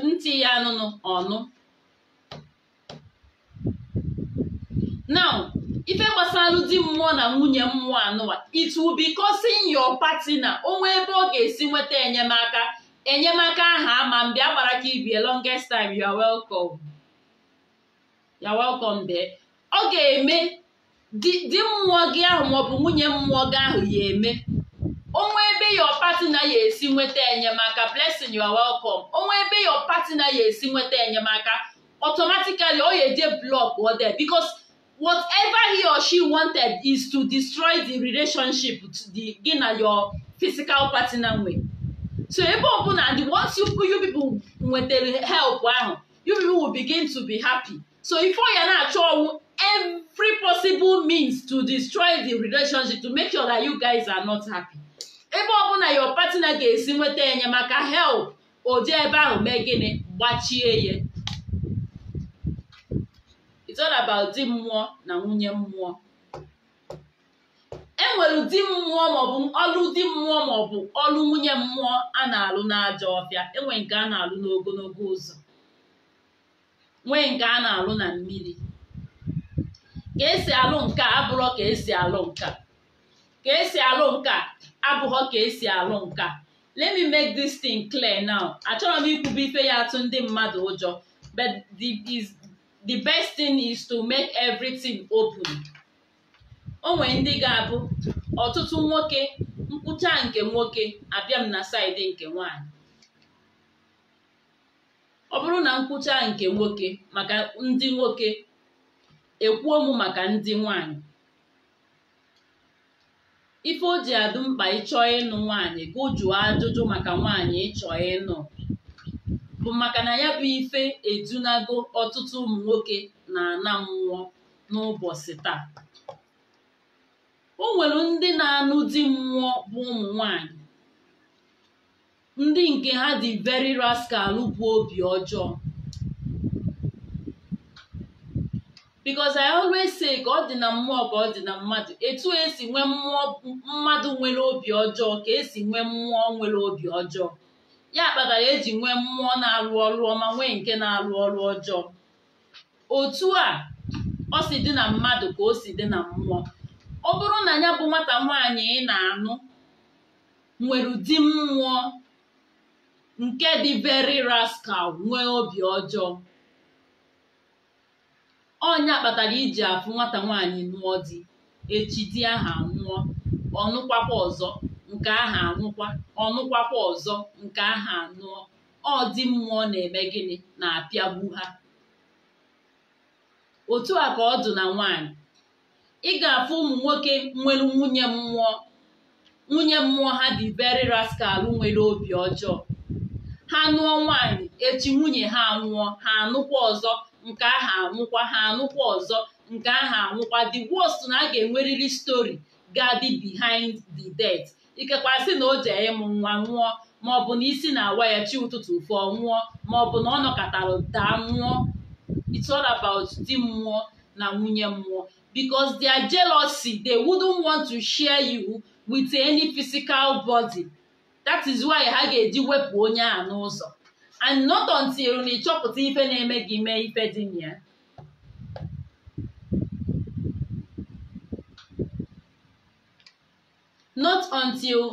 ntị ya anụnụ ọnụ now ife gbasara di mmụọ na nwunye mmụọ anụwa it will be causing your partner onwe ebe ọ ga-esi nweta enyemaka enyemaka aha ama mbe agbara ka ibie longest time you are welcome you are welcome bee ọ ga-eme di mmụọ gị ahụ maọbụ nwunye mmụọ gị ahụ ya eme onwe ebe your partner ya esi nweta enyemaka blessing you are welcome onwe ebe your partner ya esi nweta enyemaka automatically ọ ya eje blọk ọ because whatever he or she wanted is to destroy the relationship the gị na your physical partner nwe so ebe ọbụla the ones you, you people nwetara help ahụ you people will begin to be happy so ifo ya na-achọ ọnwụ every possible means to destroy the relationship to make sure that you guys are not happy ebe ọbụla your partner ga-esi nweta enyemaka help ụdị ebe ahụ mee gịnị gbachie ya it's all about di mmụọ na nwunye mmụọ enwere ụdị mmụọ maọbụ ọlụ di mmụọ maọbụ ọlụ nwunye mmụọ a na-alụ n'ajọ ọbịa enwe nke a na-alụ n'ogologo ụzọ nwee nke a na-alụ na mmiri ka esi alụ nke a abụrọ ka esi alụ nka ka esi alụ nka abụghọ ka esi alụ nka let me make this thing clear now achọrọ m ikwube ife ya atụ ndị mmadụ ụjọ but is the best thing is to make everything open o nwere ndị ga-abụ ọtụtụ nwoke nkwụcha nke nwoke abịa m na saịdị nke nwanyị ọ bụrụ na nkwụcha nke nwoke maka ndị nwoke ekwuo maka ndị nwanyị ife o ji adụ mkpa ịchọ ịnụ nwaanyị gụjụọ ajụjụ maka nwaanyị ịchọọ ịnụ bụ maka na ya bụ ife edunago ọtụtụ ụmụ nwoke na-ana mmụọ n'ụbọchị taa o nwere ndị na-anụ di mmụọ bụ ụmụ nwanyị ndị nke ha dị very rascal bụ obi ọjọọ because I always say ka ọ dị na mmụọ ka ọ dị na mmadụ etu esi nwee mmụọ mmadụ nwere obi ọjọọ ka esi nwee mmụọ nwere obi ọjọọ ya kpatara eji nwee mmụọ na-arụ ọrụ ọma nwee nke na-arụ ọrụ ọjọọ otu a ọ si dị na mmadụ ka o si dị na mmụọ ọ bụrụ na ya bụ nwata nwaanyị ị na-anụ nwere ụdị mmụọ nke dị very raskal nwee obi ọjọọ ọnya kpatara iji afụ nwata nwaanyị nụọ di echi di aha nwụọ ọ ọzọ nke aha anwụkwa ọnụkwakwa ọzọ nke aha anụọ ọ dị mmụọ na-eme gịnị na-apịagbu ha otu a ka ọ dị na nwaanyị ị ga-afụ ụmụ nwoke nwere nwunye mmụọ nwunye mmụọ ha dị beri raskal nwere obi ọjọọ ha nụọ nwaanyị echi nwunye ha nwụọ ha anụkwa ọzọ nke aha anwụkwa ha anụkwa ọzọ nke aha anwụkwa the worst na a ga-enwerịrị stori ga-adị behind the death ikekwasị na o jee ịmụ nwa nwụọ maọbụ na isi na-awa ya chi ụtụtụ fụọ nwụọ maọbụ na ọ nọkọtara daa nwụọ it's all about di mmụọ na nwunye mmụọ because their jealousy they wouldn't want to share you with any physical body that is why ha ga-eji wepụ onye a n'ụzọ and not until na ịchọpụta ife na-eme gị mee ife dị na ya not until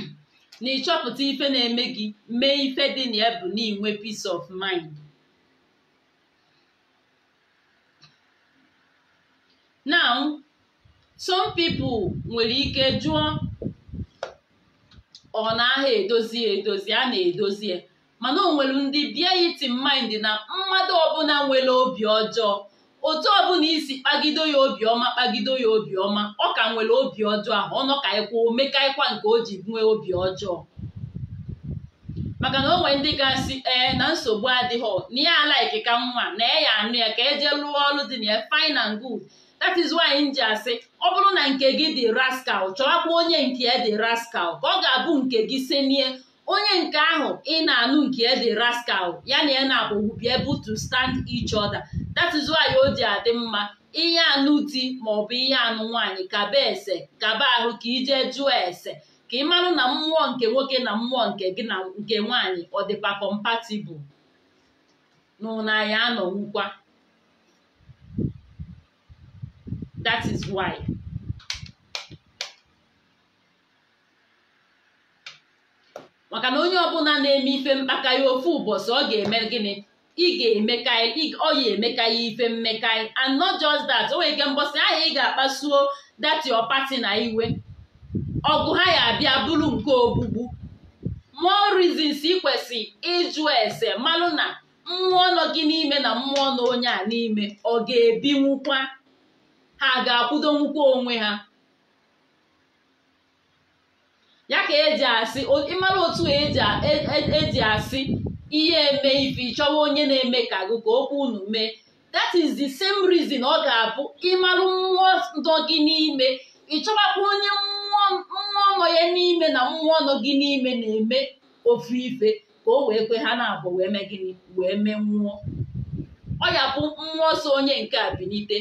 *clears throat* na ịchọpụta ife na-eme gị mee ife dị na ya bụ na peace of mind now some people nwere ike jụọ ọ na-aha edozi edozi a na-edozi mana o nwere ndị bie iti mind na mmadụ ọbụla nwere obi ọjọọ otu ọbụla isi kpagido ya obiọma kpagido ya obiọma ọ ka nwere obi ọjọọ ahụ ọnọ ka ịkwa e omekaịkwa nke o ji nwee obi ọjọọ maka na o nwere ndị ga-asị ee na nsogbu adịghị na ya ala ka nwa na e ya anụ ya ka eje lụọ ọrụ dị na ya fine and good that is why m ji asị ọ bụrụ na nke gị dị rascal chọwakwa onye nke ya dị rascal ka ọ ga-abụ nke gị senie onye nke ahụ ị na-anụ nke ya dị rascal ya na ya na-akpọgbu be able to stand each other that is why o ji adị mma ihe anụ di maọbụ ihe anụ nwaanyị kaba ese kaba ahụ ka ije jụọ ese ka ị marụ na mmụọ nke nwoke na mmụọ nke gị na nke nwaanyị ọ dịkwa compatible n'ụna anọ anọwukwa that is why maka na onye ọbụla na-eme ife mkpaka ya ofu ụbọchị ọ ga-eme gịnị ị ga-emeka ọ ya ya ife mmekai and not just that o nwere ike mbọsị ahịa ị ga-akpasuo that your party na iwe ọgụ ha ya abịa bụrụ nke ogbugbu more reasons ị kwesị ịjụ ese malụ na mmụọ nọ gị n'ime na mmụọ nọ onye a n'ime ọ ga-ebinwukwa ha ga-akwụdonwukwa onwe ha ya ka eji asị ịmara otu eji e, e, e asị ihe eme ife chọwa onye na-eme ka agụkọ ka okwu unu mee that is the same reason ọ ga-abụ ịmarụ mmụọ ndọ gị n'ime ịchọwakwa onye mmụọ nọ ya n'ime na mmụọ nọ gị n'ime na-eme ofu ife ka o wee kwe ha na-abụ wee mee gịnị wee mee mmụọ ọ ya bụ mmụọ so onye nke a bilite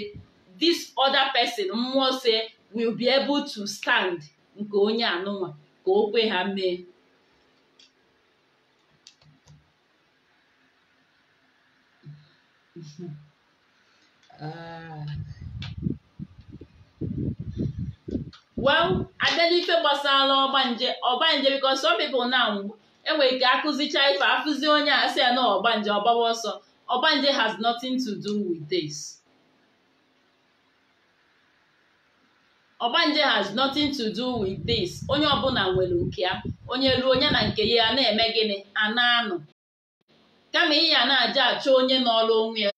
this other person mmụọ so will be able to stand nke onye anụnwa ka o kwe ha mee Uh, *laughs* well abịa n'ife gbasara ọgbanje ọgbanje because some people now enwere ike akụzicha ife akụzi onye a sị ya na ọgbanje ọgbawa ọsọ ọgbanje has nothing to do with this oh, has nothing to do with this onye ọbụla nwere nke ya onye ruo onye na nke ya na-eme gịnị a na-anọ kama ị a na-aja achọ onye n'ọlụ onwe ya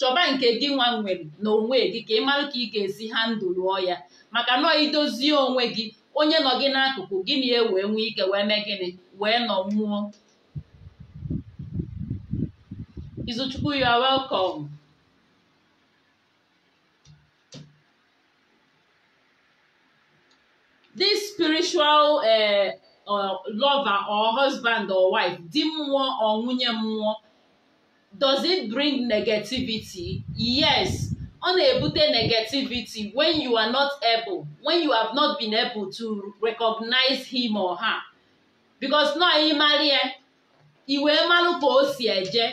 chọba nke gị nwa nwere na onwe gị ka ị mara ka ị ga-esi ha ndụ lụọ ya maka nọọ idozie onwe gị onye nọ gị n'akụkụ gị na wee nwee ike wee mee gịnị wee nọ nwụọ Izuchukwu Uh, lover or husband or wife di mmụọ or nwunye mmụọ does it bring negativity yes ọ na-ebute negativity when you are not able when you have not been able to recognize him or her because nọ ịmarị ya iwe mmanụ ka o si eje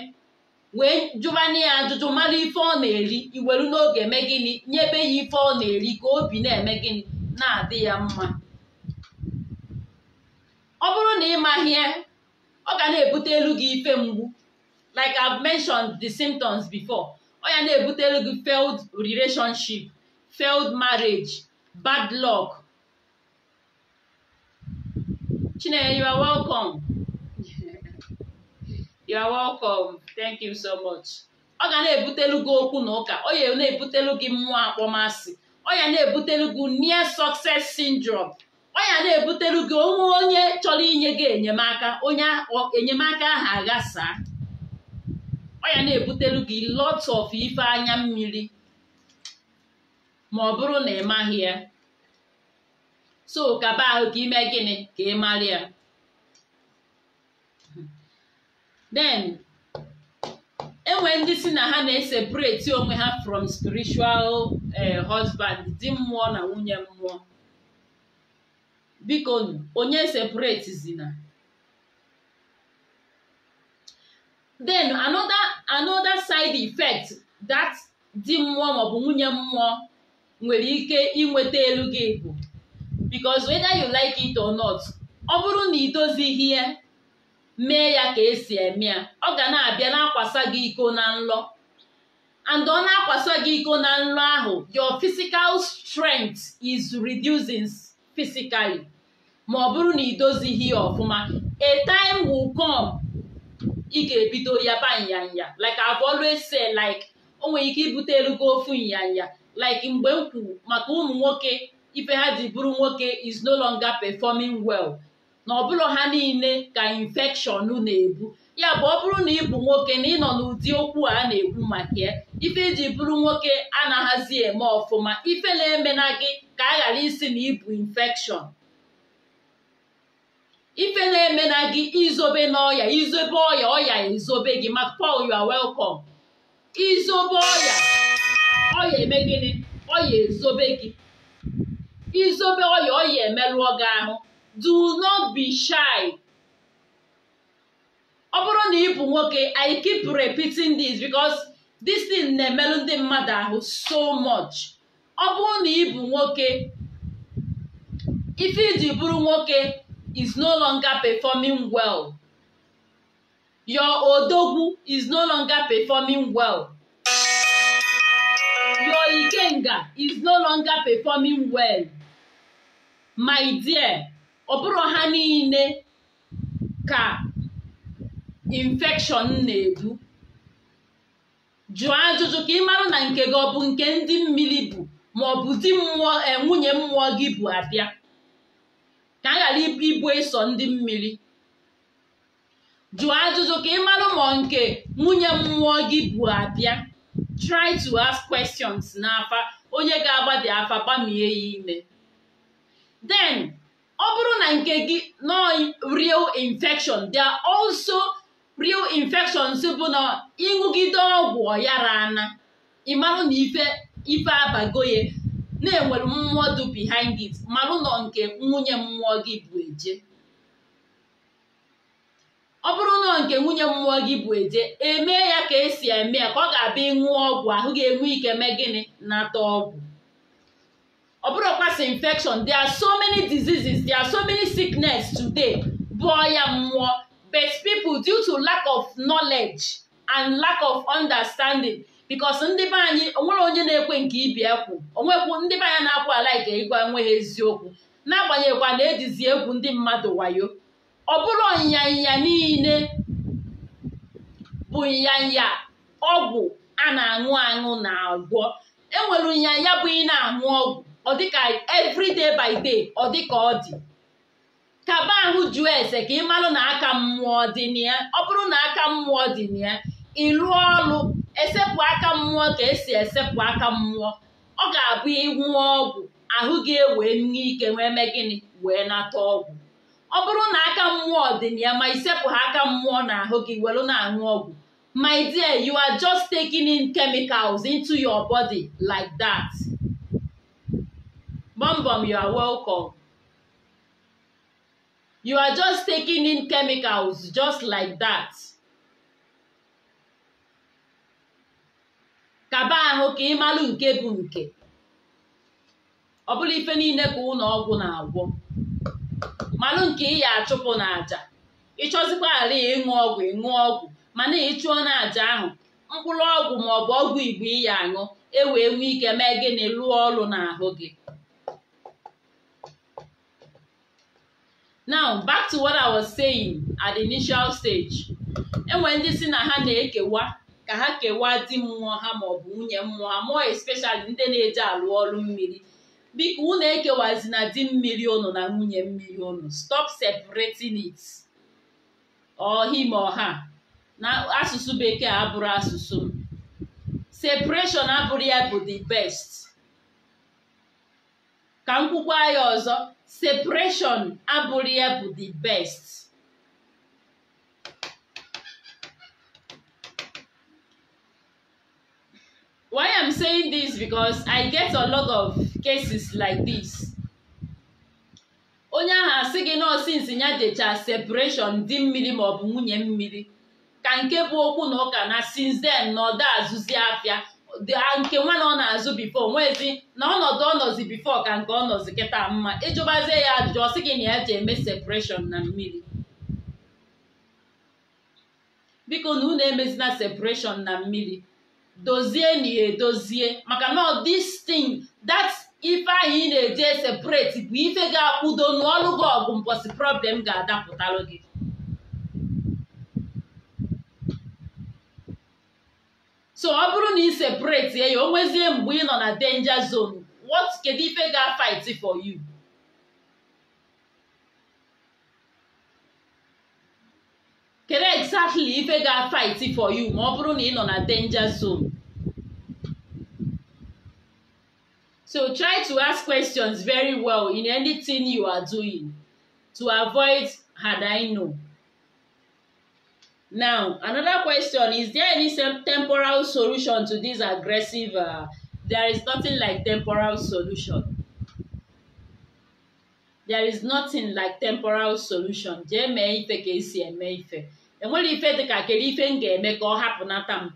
wee jụbanye ya ajụjụ mara ife ọ na-eri iweru n'oge eme gịnị nyebe ya ife ọ na-eri ka obi na-eme gịnị na-adị ya mma ọ bụrụ na ị mahie ọ ga na-ebute elu gị ife mgbu like I've mentioned the symptoms before ọ ya na-ebute elu gị failed relationship failed marriage bad luck Chinenye you are welcome *laughs* you are welcome thank you so much ọ ga na-ebutelu gị okwu na ụka ọ ya na-ebutelu gị mmụọ akpọmasị ọ ya na-ebutelu gị near success syndrome ya na-ebutelu gị onwe onye chọrọ inye gị enyemaka onye enyemaka ahụ aghasaa ya na-ebutelu gị lot of ife anya mmiri ma ọ bụrụ na ị maghị ya so kaba ahụ ka ime gịnị ka ị mara ya den enwe ndị si na ha na-esepareti onwe ha from spiritual eh, husband di mmụọ na nwunye mmụọ bikonu onye zina then another another side effect that di mmụọ maọbụ nwunye mmụọ nwere ike inweta elu gị bụ because weda you like it or not ọ bụrụ na idozighi ya mee ya ka esi eme ya ọ ga na-abịa na-akwasa gị iko na nlọ and ọ na-akwasa gị iko na nlọ ahụ your physical strength is reducing physically ma ọ bụrụ na idozighi ya ọfụma a time will come ị ga-ebido ya ba nyanya like I've always said like o nwere ike ibute elugo ofu nyanya like mgbe m kwuru maka ụmụ nwoke ife ha ji bụrụ nwoke is no longer performing well na ọbụlọ ha niile ka infection na-ebu ya bụ ọ bụrụ na ị bụ nwoke na ị nọ n'ụdị okwu a na-ekwu maka ya ife iji e bụrụ nwoke na-ahazi eme ọfụma ife na emena gị ka a ghara isi na ibu infection ife na-eme na gị izobe n'ọya izobe ọya ọya ezobe gị ma Paul you are welcome izobe ọya ọya eme gịnị ọya ezobe gị izobe ọya ọya emerụọ gị ahụ do not be shy ọ bụrụ na ị bụ nwoke I keep repeating this because this thing na-emerụ ndị mmadụ ahụ so much ọ bụrụ na ị nwoke ife iji bụrụ nwoke is no longer performing well. Your odogwu is no longer performing well. Your ikenga is no longer performing well. My dear, ọ bụrụ ha niile ka infection na-edu. Jụọ ajụjụ ka ị mara na nke gị ọ bụ nke ndị mmiri bụ ma ọ bụzi mmụọ eh, nwunye mmụọ gị bụ abịa. ka a ghara ibu ịsọ ndị mmiri jụọ ajụjụ ka ị mara ma nke nwunye mmụọ gị bụ abịa try to ask questions n'afa onye ga-agbadi afa gbamie ya ime then ọ bụrụ na nke gị nọ real infection there are also real infections bụ na ịṅụgide ọgwụ ọyara ana ịmarụ na ife ife abagoye na-enwere mmụọ dị behind it mara ụlọ nke nwunye mmụọ gị bụ eje ọ bụrụ ụlọ nke nwunye mmụọ gị bụ eje emee ya ka esi eme ya ka ọ ga-abịa ịṅụ ọgwụ ahụ ga-enwe ike mee gịnị nata ọgwụ ọ bụrụkwasị infection there are so many diseases there are so many sickness today bụ ọya mmụọ but people due to lack of knowledge and lack of understanding bikos ndị be anyị onwere onye na-ekwe nke ibi ekwu onwekwu ndị be anyị na-akwụ ala ike ịgwa enweghị eziokwu n'agbanyeghịkwa na ejizi egwu ndị mmadụ wayo ọ bụrụ ịnyanya niile bụ ịnyanya ọgwụ a na-aṅụ aṅụ na agwọ enwere ịnyanya bụ ị na-aṅụ ọgwụ ọ dịka every by day ọ dịka ọ dị kaba ahụ jụọ ese ka ị marụ na aka mmụọ dị na ya ọ bụrụ na aka mmụọ dị na ya ịlụ ọrụ esepụ aka mmụọ ka esi esepụ aka mmụọ ọ ga-abụ ịnwụọ ọgwụ ahụ gị ewee nwee ike wee mee gịnị wee nata ọgwụ ọ bụrụ na aka mmụọ dị na ya ma isepụ ha aka mmụọ na ahụ gị welu na-aṅụ ọgwụ my dear you are just taking in chemicals into your body just like that. kaba ahụ ka ịmalụ nke bụ nke ọ bụla ife niile ka ụlọ ọgwụ na-agwọ malụ nke ị ya achụpụ na aja ịchọzikwa ala ịṅụ ọgwụ ịṅụ ọgwụ mana ịchụọ na aja ahụ mkpụrụ ọgwụ ma ọ bụ ọgwụ igbo ị ya aṅụ e wee nwee ike mee gịnị lụọ ọrụ n'ahụ gị now back to what I was saying at the initial stage enwere ndị si na ha na-ekewa ka ha kewaa di mmụọ ha maọbụ nwunye mmụọ ha mụọ espeshali ndị na-eje alụ ọrụ mmiri biko unu na di mmiri ụnụ na nwunye mmiri unu stop separating it ọhim ọha na asụsụ bekee abụrụ asụsụ m separation abụrụ ya bụ the best ka m ya ọzọ separation abụrụ ya bụ the best why i'm saying this because i get a lot of cases like this onye ahụ asị gị na ya decha separation di mmiri maọbụ nwunye mmiri ka nke bụ okwu na ụka na since then na ọda azụzi afịa nke nwa na ọ na-azụ bifo nwezi na ọnọdụ ọnọzi bifo ka nke ọnọzi kịta mma ịjụbazie ya ajụjụ ọ sị gị na ya ji eme separation na mmiri biko na unu emezina separation na mmiri dozie na ya edozie maka na this thing that ife anyị na-eje separate bụ ife ga-akwudo n'ọlụ gị ọgụ mbọsị problem ga-adapụtalụ gị so ọ bụrụ na ị separate ya o nwezie mgbe ị nọ na danger zone what kedu ife ga-fight for you kedu exactly ife ga-fight for you ma ọ bụrụ na ị nọ na danger zone so try to ask questions very well in anything you are doing to avoid had I know. Now, another question, is there any temporal solution to this aggressive? Uh, there is nothing like temporal solution. There is nothing like temporal solution. Jee mee ife ka esi eme ife. enwere ife dị ka kere ife m ga-eme ka ọ hapụ m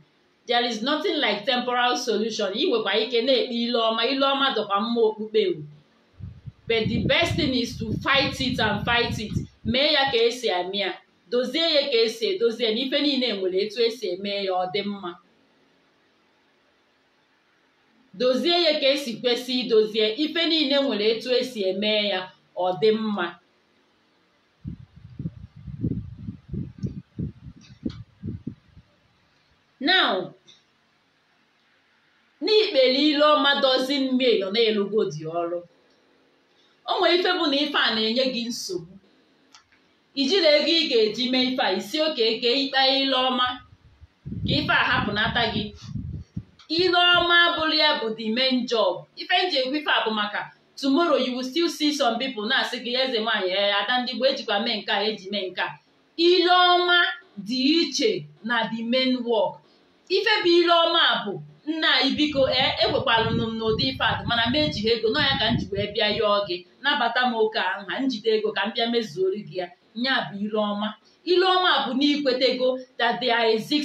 there is nothing like temporal solution ị nwekwa ike na-ekpe ile ọma ile ọma dọkwa mma okpukpe but the best thing is to fight it and fight it mee ya ka esi eme ya dozie ya ka esi edozie eme ya ọ kwesị idozie ife niile nwere etu esi eme ya ọ dị mma now n'ikpeliloma dozin mil nọ na-elugo dị ọrụ o nwere ife bụ na ife a na-enye gị nsogbu na ego ị ga-eji mee ife a isi oke eke ikpe ileọma ka ife a nata gị ileọma abụrụ ya bụ the main job ife nji ekwu ife a bụ maka tomorrow you will still see some people na-asị gị eze nwaanyị ee ada ndị gboo ejikwa mee nke a eji mee nke a ileọma dị iche na the main work ife bụ ile ọma bụ nna anyị biko ee ekwekwalụ m n'ụdị ife atụ mana m ejighị ego nọ ya ka m ji wee bịa yọọ gị nabata m oke ahụ njide ego ka m bịa mezuori gị ya nya bụ ile ọma ile ọma bụ na ikwetego that they are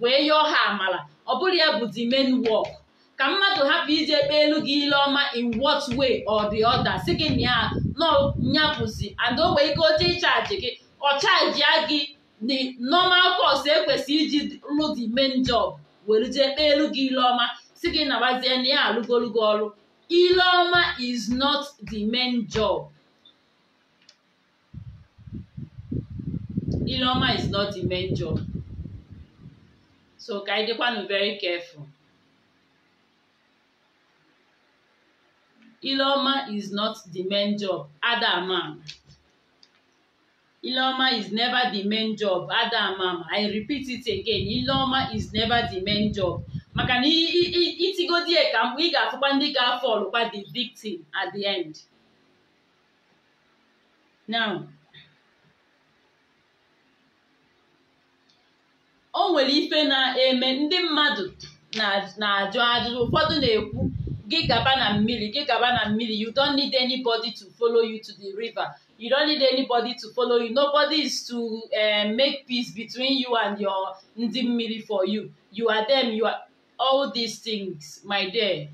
wee yọọ ha amala ọ bụrụ ya bụ the main work ka mmadụ hapụ iji ekpe elu gị ile ọma in what way or the si gị na ya nọ nyapụzi and o nwee ike oche ịchaji gị ọ chaji gị the normal course ekwesị iji rụ the main job were jee kpee elu gị ile ọma si gị nabazie na ya alụgolugo ọrụ ile ọma is not the main job ile ọma is not the main job so ka anyị dịkwanụ very careful ile ọma is not the main job adam ileoma is never the main job Adamam I repeat it again ileoma is never the main job maka na itigodi e ka mgbe ị ga-afụkwa ndị ga-afọl kwa the victim at the end now o nwere ife na-eme ndị mmadụ na-ajụ ajụjụ ụfọdụ na-ekwu gị gaba na mmiri gị gaba na mmiri you don't need anybody to follow you to the river You don't need anybody to follow you. Nobody is to eh, make peace between you and your ndi mmiri for you. You are them. You are all these things, my dear.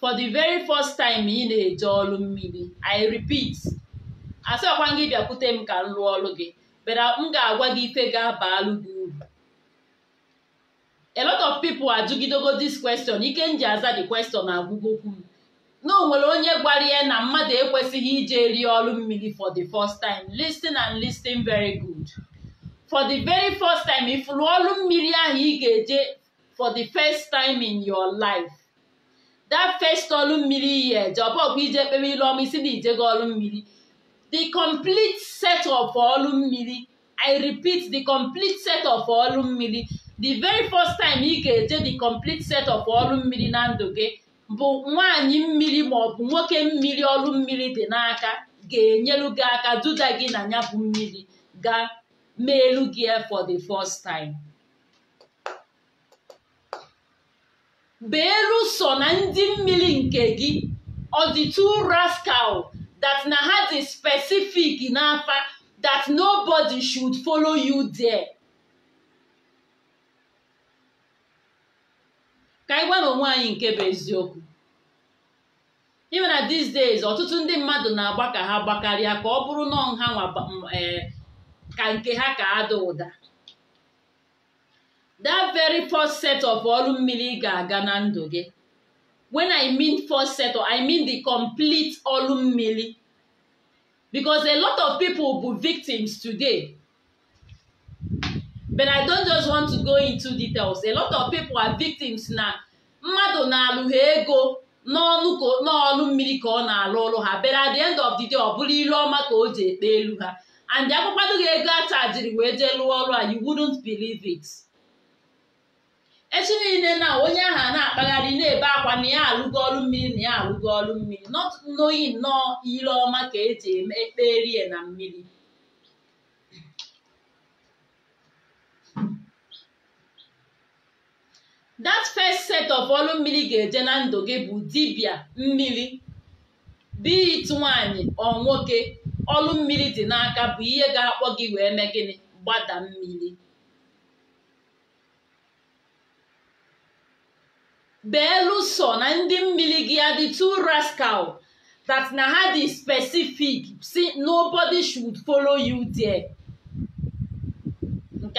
For the very first time ị na-eje olu mmiri, I repeat, asịkwa gị bịakwute m ka m rụọ ọlụ gị, beda uh, m ga-agwa gị ife ga-abalụ gị uru. A lot of people ajụgidogo this question, Ikenji aza the question agwụgokwu m. na nwere onye gwara ya na mmadụ ekwesịghị ije rie ọrụ mmiri for the first time listen and listen very good for the very first time if ọrụ mmiri ahụ ị ga-eje for the first time in your life that first ọrụ mmiri iyi eje ije kpere ilu ọma isi na ijego ọrụ mmiri the complete set of ọrụ mmiri i repeat the complete set of ọrụ mmiri the very first time ị ga-eje the complete set of ọrụ mmiri na ndụ gị bụ nwaanyị mmiri ma ọ bụ nwoke mmiri ọrụ mmiri dị n'aka ga-enyelu gị aka duda gị na ya bụ mmiri ga meelu gị for the first time beelu so na ndị mmiri nke gị ọ dị two rascal that na ha dị specific n'afa that nobody should follow you there. ka anyị gwa onwe anyị nke bụ eziokwu ime na these days ọtụtụ ndị mmadụ na-agba ka ha gbakarịa ka ọ bụrụ nọ nha e, ka nke ha ka ada ụda that very first set of ọrụ mmiri ga-aga na ndụ gị when i mean first set of, i mean the complete ọrụ mmiri because a lot of people bụ victims today but I don't just want to go into details a lot of people are victims na mmadụ na-alụ ha ego n'ọnụ mmiri ka ọ na-alụ ọrụ ha but at the end of the day ọ bụrụ ilu ọma ka o ji ekpe elu ha and akwụkwado gị ego a wee jee lụọ ọrụ a you wouldn't believe it echi niile na onye ahụ a na-akpagharị na-ebe akwa na ya alụgo ọrụ mmiri na ya alụgo ọrụ mmiri not knowing nọọ ire ọma ka eji eme ekperie na mmiri that first set of ọlụ mmiri ga-eje na ndụ gị bụ dibia mmiri bit nwanyị ọ nwoke ọlụ mmiri dị n'aka bụ ihe ga-akpọ gị wee mee gịnị gbada mmiri beeluso na ndị mmiri gị adị two rascal that na ha dị specific si nobody should follow you there.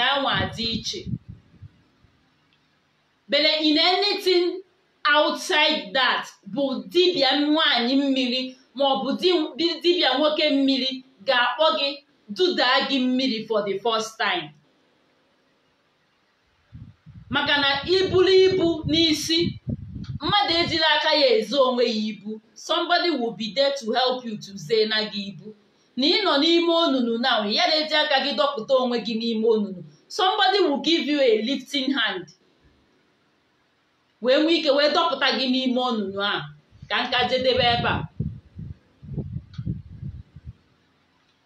nke dị iche but in anything outside that bụ dibia nwanyị mmiri ma ọ bụ dibịa nwoke mmiri ga-akpọ gị dudaa gị mmiri for the first time maka na iburu ibu n'isi mmadụ ejiri aka ya ezo onwe ya ibu somebody will be there to help you to say na gị ibu na ị nọ n'ime onunu na ya na-eji aka gị dọpụta onwe gị n'ime onunu somebody will give you a lifting hand wee nwee ike wee dọpụta gị n'ime ọnụnụ a ka nka jedebe ebe a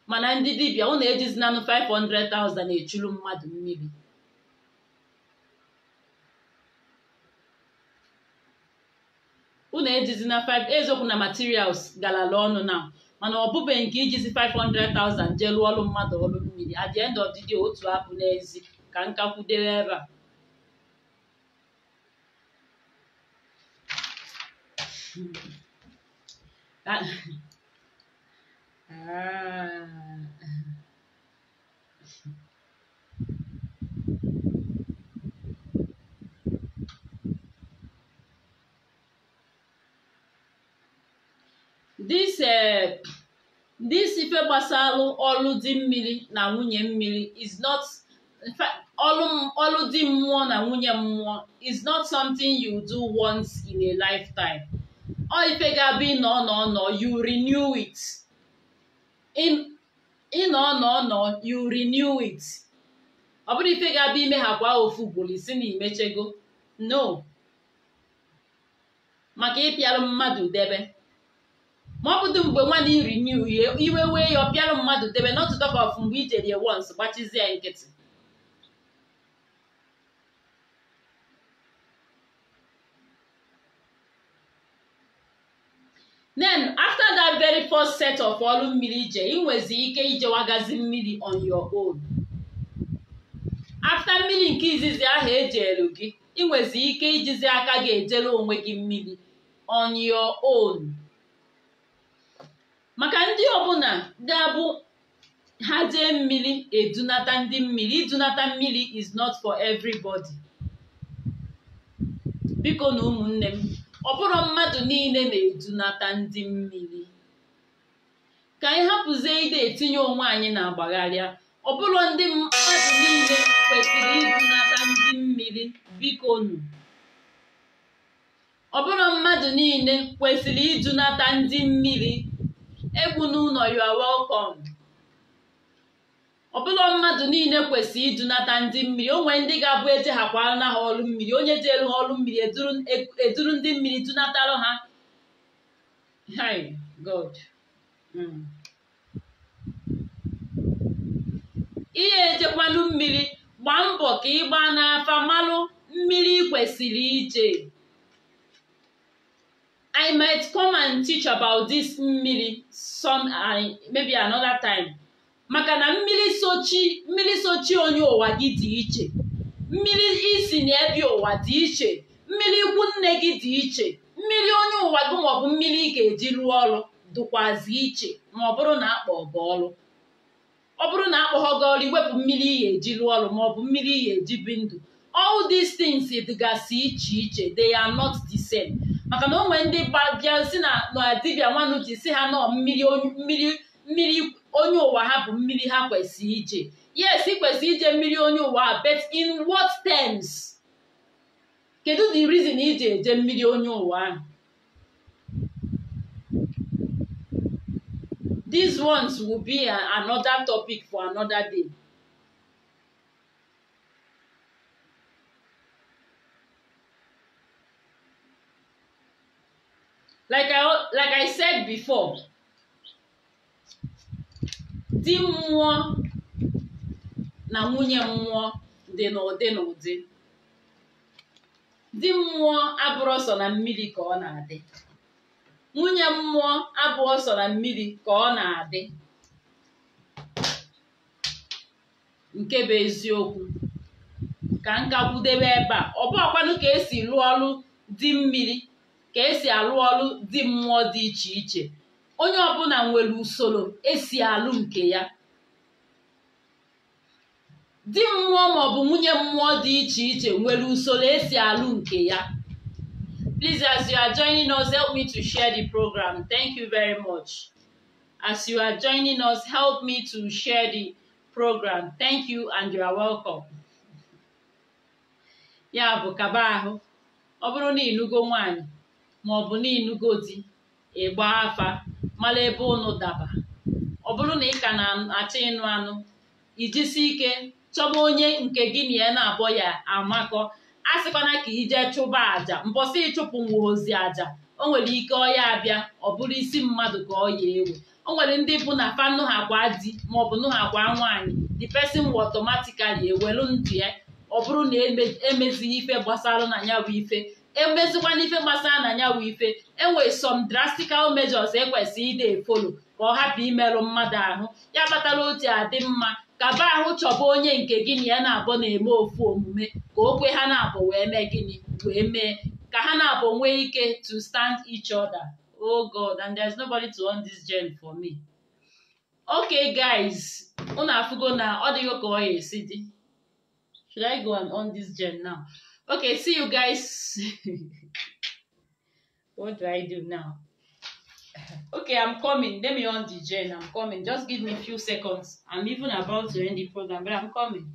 mana ndị dibịa ụnụ ejizinanụ 500,000 echuru mmadụ mmiri ụnụ ejizina 5 eziokwu na materials galala ọnụ na mana ọ bụbeghị nke ijizi 500,000 jee lụọ ọrụ mmadụ ọrụ mmiri at the end of the day otu abụ n'ezi ka nkakwudere ebe a Ah. this eh, this ife gbasalụ ọlụ di mmiri na nwunye mmiri is not ọlụ di mmụọ na nwunye mmụọ is not something you do once in a lifetime ọ ife ga-abụ ịnọ nọ nọ you renew it ịnọ nọ you renew it ọ bụrụ ife ga ime ha kwa ofu ugboro isi na imechego no maka ịpịalụ mmadụ debe ma ọ mgbe nwa iri nye uhie iwe wee ya ọ mmadụ debe not to of mgbe i jere once gbachizie ya nkịtị then after that very first set of ọrụ mmiri ije ị nwezi ike ijewagazi mmiri on your own after mmiri nke izizi ahụ ejelu gị ị ike ijizi aka gị ejere onwe gị mmiri on your own maka ndị ọbụla ga-abụ ha jee mmiri edunata ndị mmiri idunata mmiri is not for everybody biko na ụmụnne m ọ bụrụ mmadụ niile na-edunata ndị mmiri ka anyị hapụzie ide etinye onwe anyị na agbagharịa ọ bụrụ ndị mmadụ niile kwesịrị idunata ndị mmiri biko nụ ọ bụrụ mmadụ niile kwesịrị idunata ndị mmiri egwu n'ụlọ you are welcome ọbụla mmadụ niile kwesịrị idunata ndị mmiri o nwere ndị ga-abụ eji na ha ọrụ mmiri onye ji ha ọlụ mmiri eduru ndị mmiri dunatara ha hi god hmm. ihe echekwanụ mmiri gbaa mbọ ka ị gbaa n'afa malụ mmiri kwesịrị ije I might come and teach about this mmiri some maybe another time maka na mmiri sochi mmiri sochi onye ụwa gị dị iche mmiri isi na ebi ụwa dị iche mmiri ikwu nne gị dị iche mmiri onye ụwa gị maọbụ mmiri ị ga-eji rụọ ọrụ dịkwazi iche ma ọ bụrụ na akpọ gị ọrụ ọ bụrụ na akpọghọ gị ọrụ iwepụ mmiri ị ga-eji rụọ ọrụ maọbụ mmiri ị ga-eji bi ndụ all these things dịgasị iche iche they are not the same. maka na o nwere ndị bịa na dibia nwanne uche si ha nọ mmiri mmiri onye ụwa ha bụ mmiri ha kwesịrị ije yes ị kwesịrị ije mmiri onye ụwa but in what terms kedu the reason iji eje mmiri onye ụwa ahụ these ones will be another topic for another day. like I, like I said before di mmụọ na nwunye mmụọ dị n'ụdị n'ụdị di mmụọ abụrụ sọ na mmiri ka ọ na-adị nwunye mmụọ abụọ sọ na mmiri ka ọ na-adị nke bụ eziokwu ka nkakwudebe ebe a ọ bụ ọkwanụ ka esi rụọ ọrụ di mmiri ka esi alụ ọrụ dị mmụọ dị iche iche onye ọbụla nwere usoro esi alụ nke ya di mmụọ maọbụ nwunye mmụọ dị iche iche nwere usoro esi alụ nke ya Please, as you are joining us, help me to share the program. Thank you very much. As you are joining us, help me to share the program. Thank you and you are welcome. Ya bụ kaba ahụ, ọ bụrụ na ịlụgo nwaanyị maọbụ n'inugo di ịgba afa mara ebe unu daba ọ bụrụ na ị ka na-achọ ịnụ anụ ijisi ike chọba onye nke gị na ya na-abọ ya amakọ a sịkwana ka ije chụba aja mbọsị ịchụpụ nwa ozi aja o nwere ike ọya abịa ọ bụrụ isi mmadụ ka ọ ya ewe o nwere ndị bụ na fanụ ha di maọbụ nụ ha gwa nwaanyị di pesin will otomatikali ewelu ndụ ya ọ bụrụ na emezighị e ife gbasara na ya bụ ife emezikwana ife gbasara na ya wụ ife enwere some drastical measures ekwesị ide efolo ka ọ hapụ imerụ mmadụ ahụ ya kpatara otu adị mma kaba ahụ chọba onye nke gịnị ya na-abụ na-eme ofu omume ka okwe ha na-abụ wee mee gịnị wee mee ka ha na-abụ nwee ike to stand each other oh god and is nobody to on this gen for me okay guys unu afụgo na ọ dịghị ka ọ ya esi dị should i go and this gen now okay see you guys *laughs* what do i do now okay i'm coming let me on the gen i'm coming just give me a few seconds i'm even about to end the program but i'm coming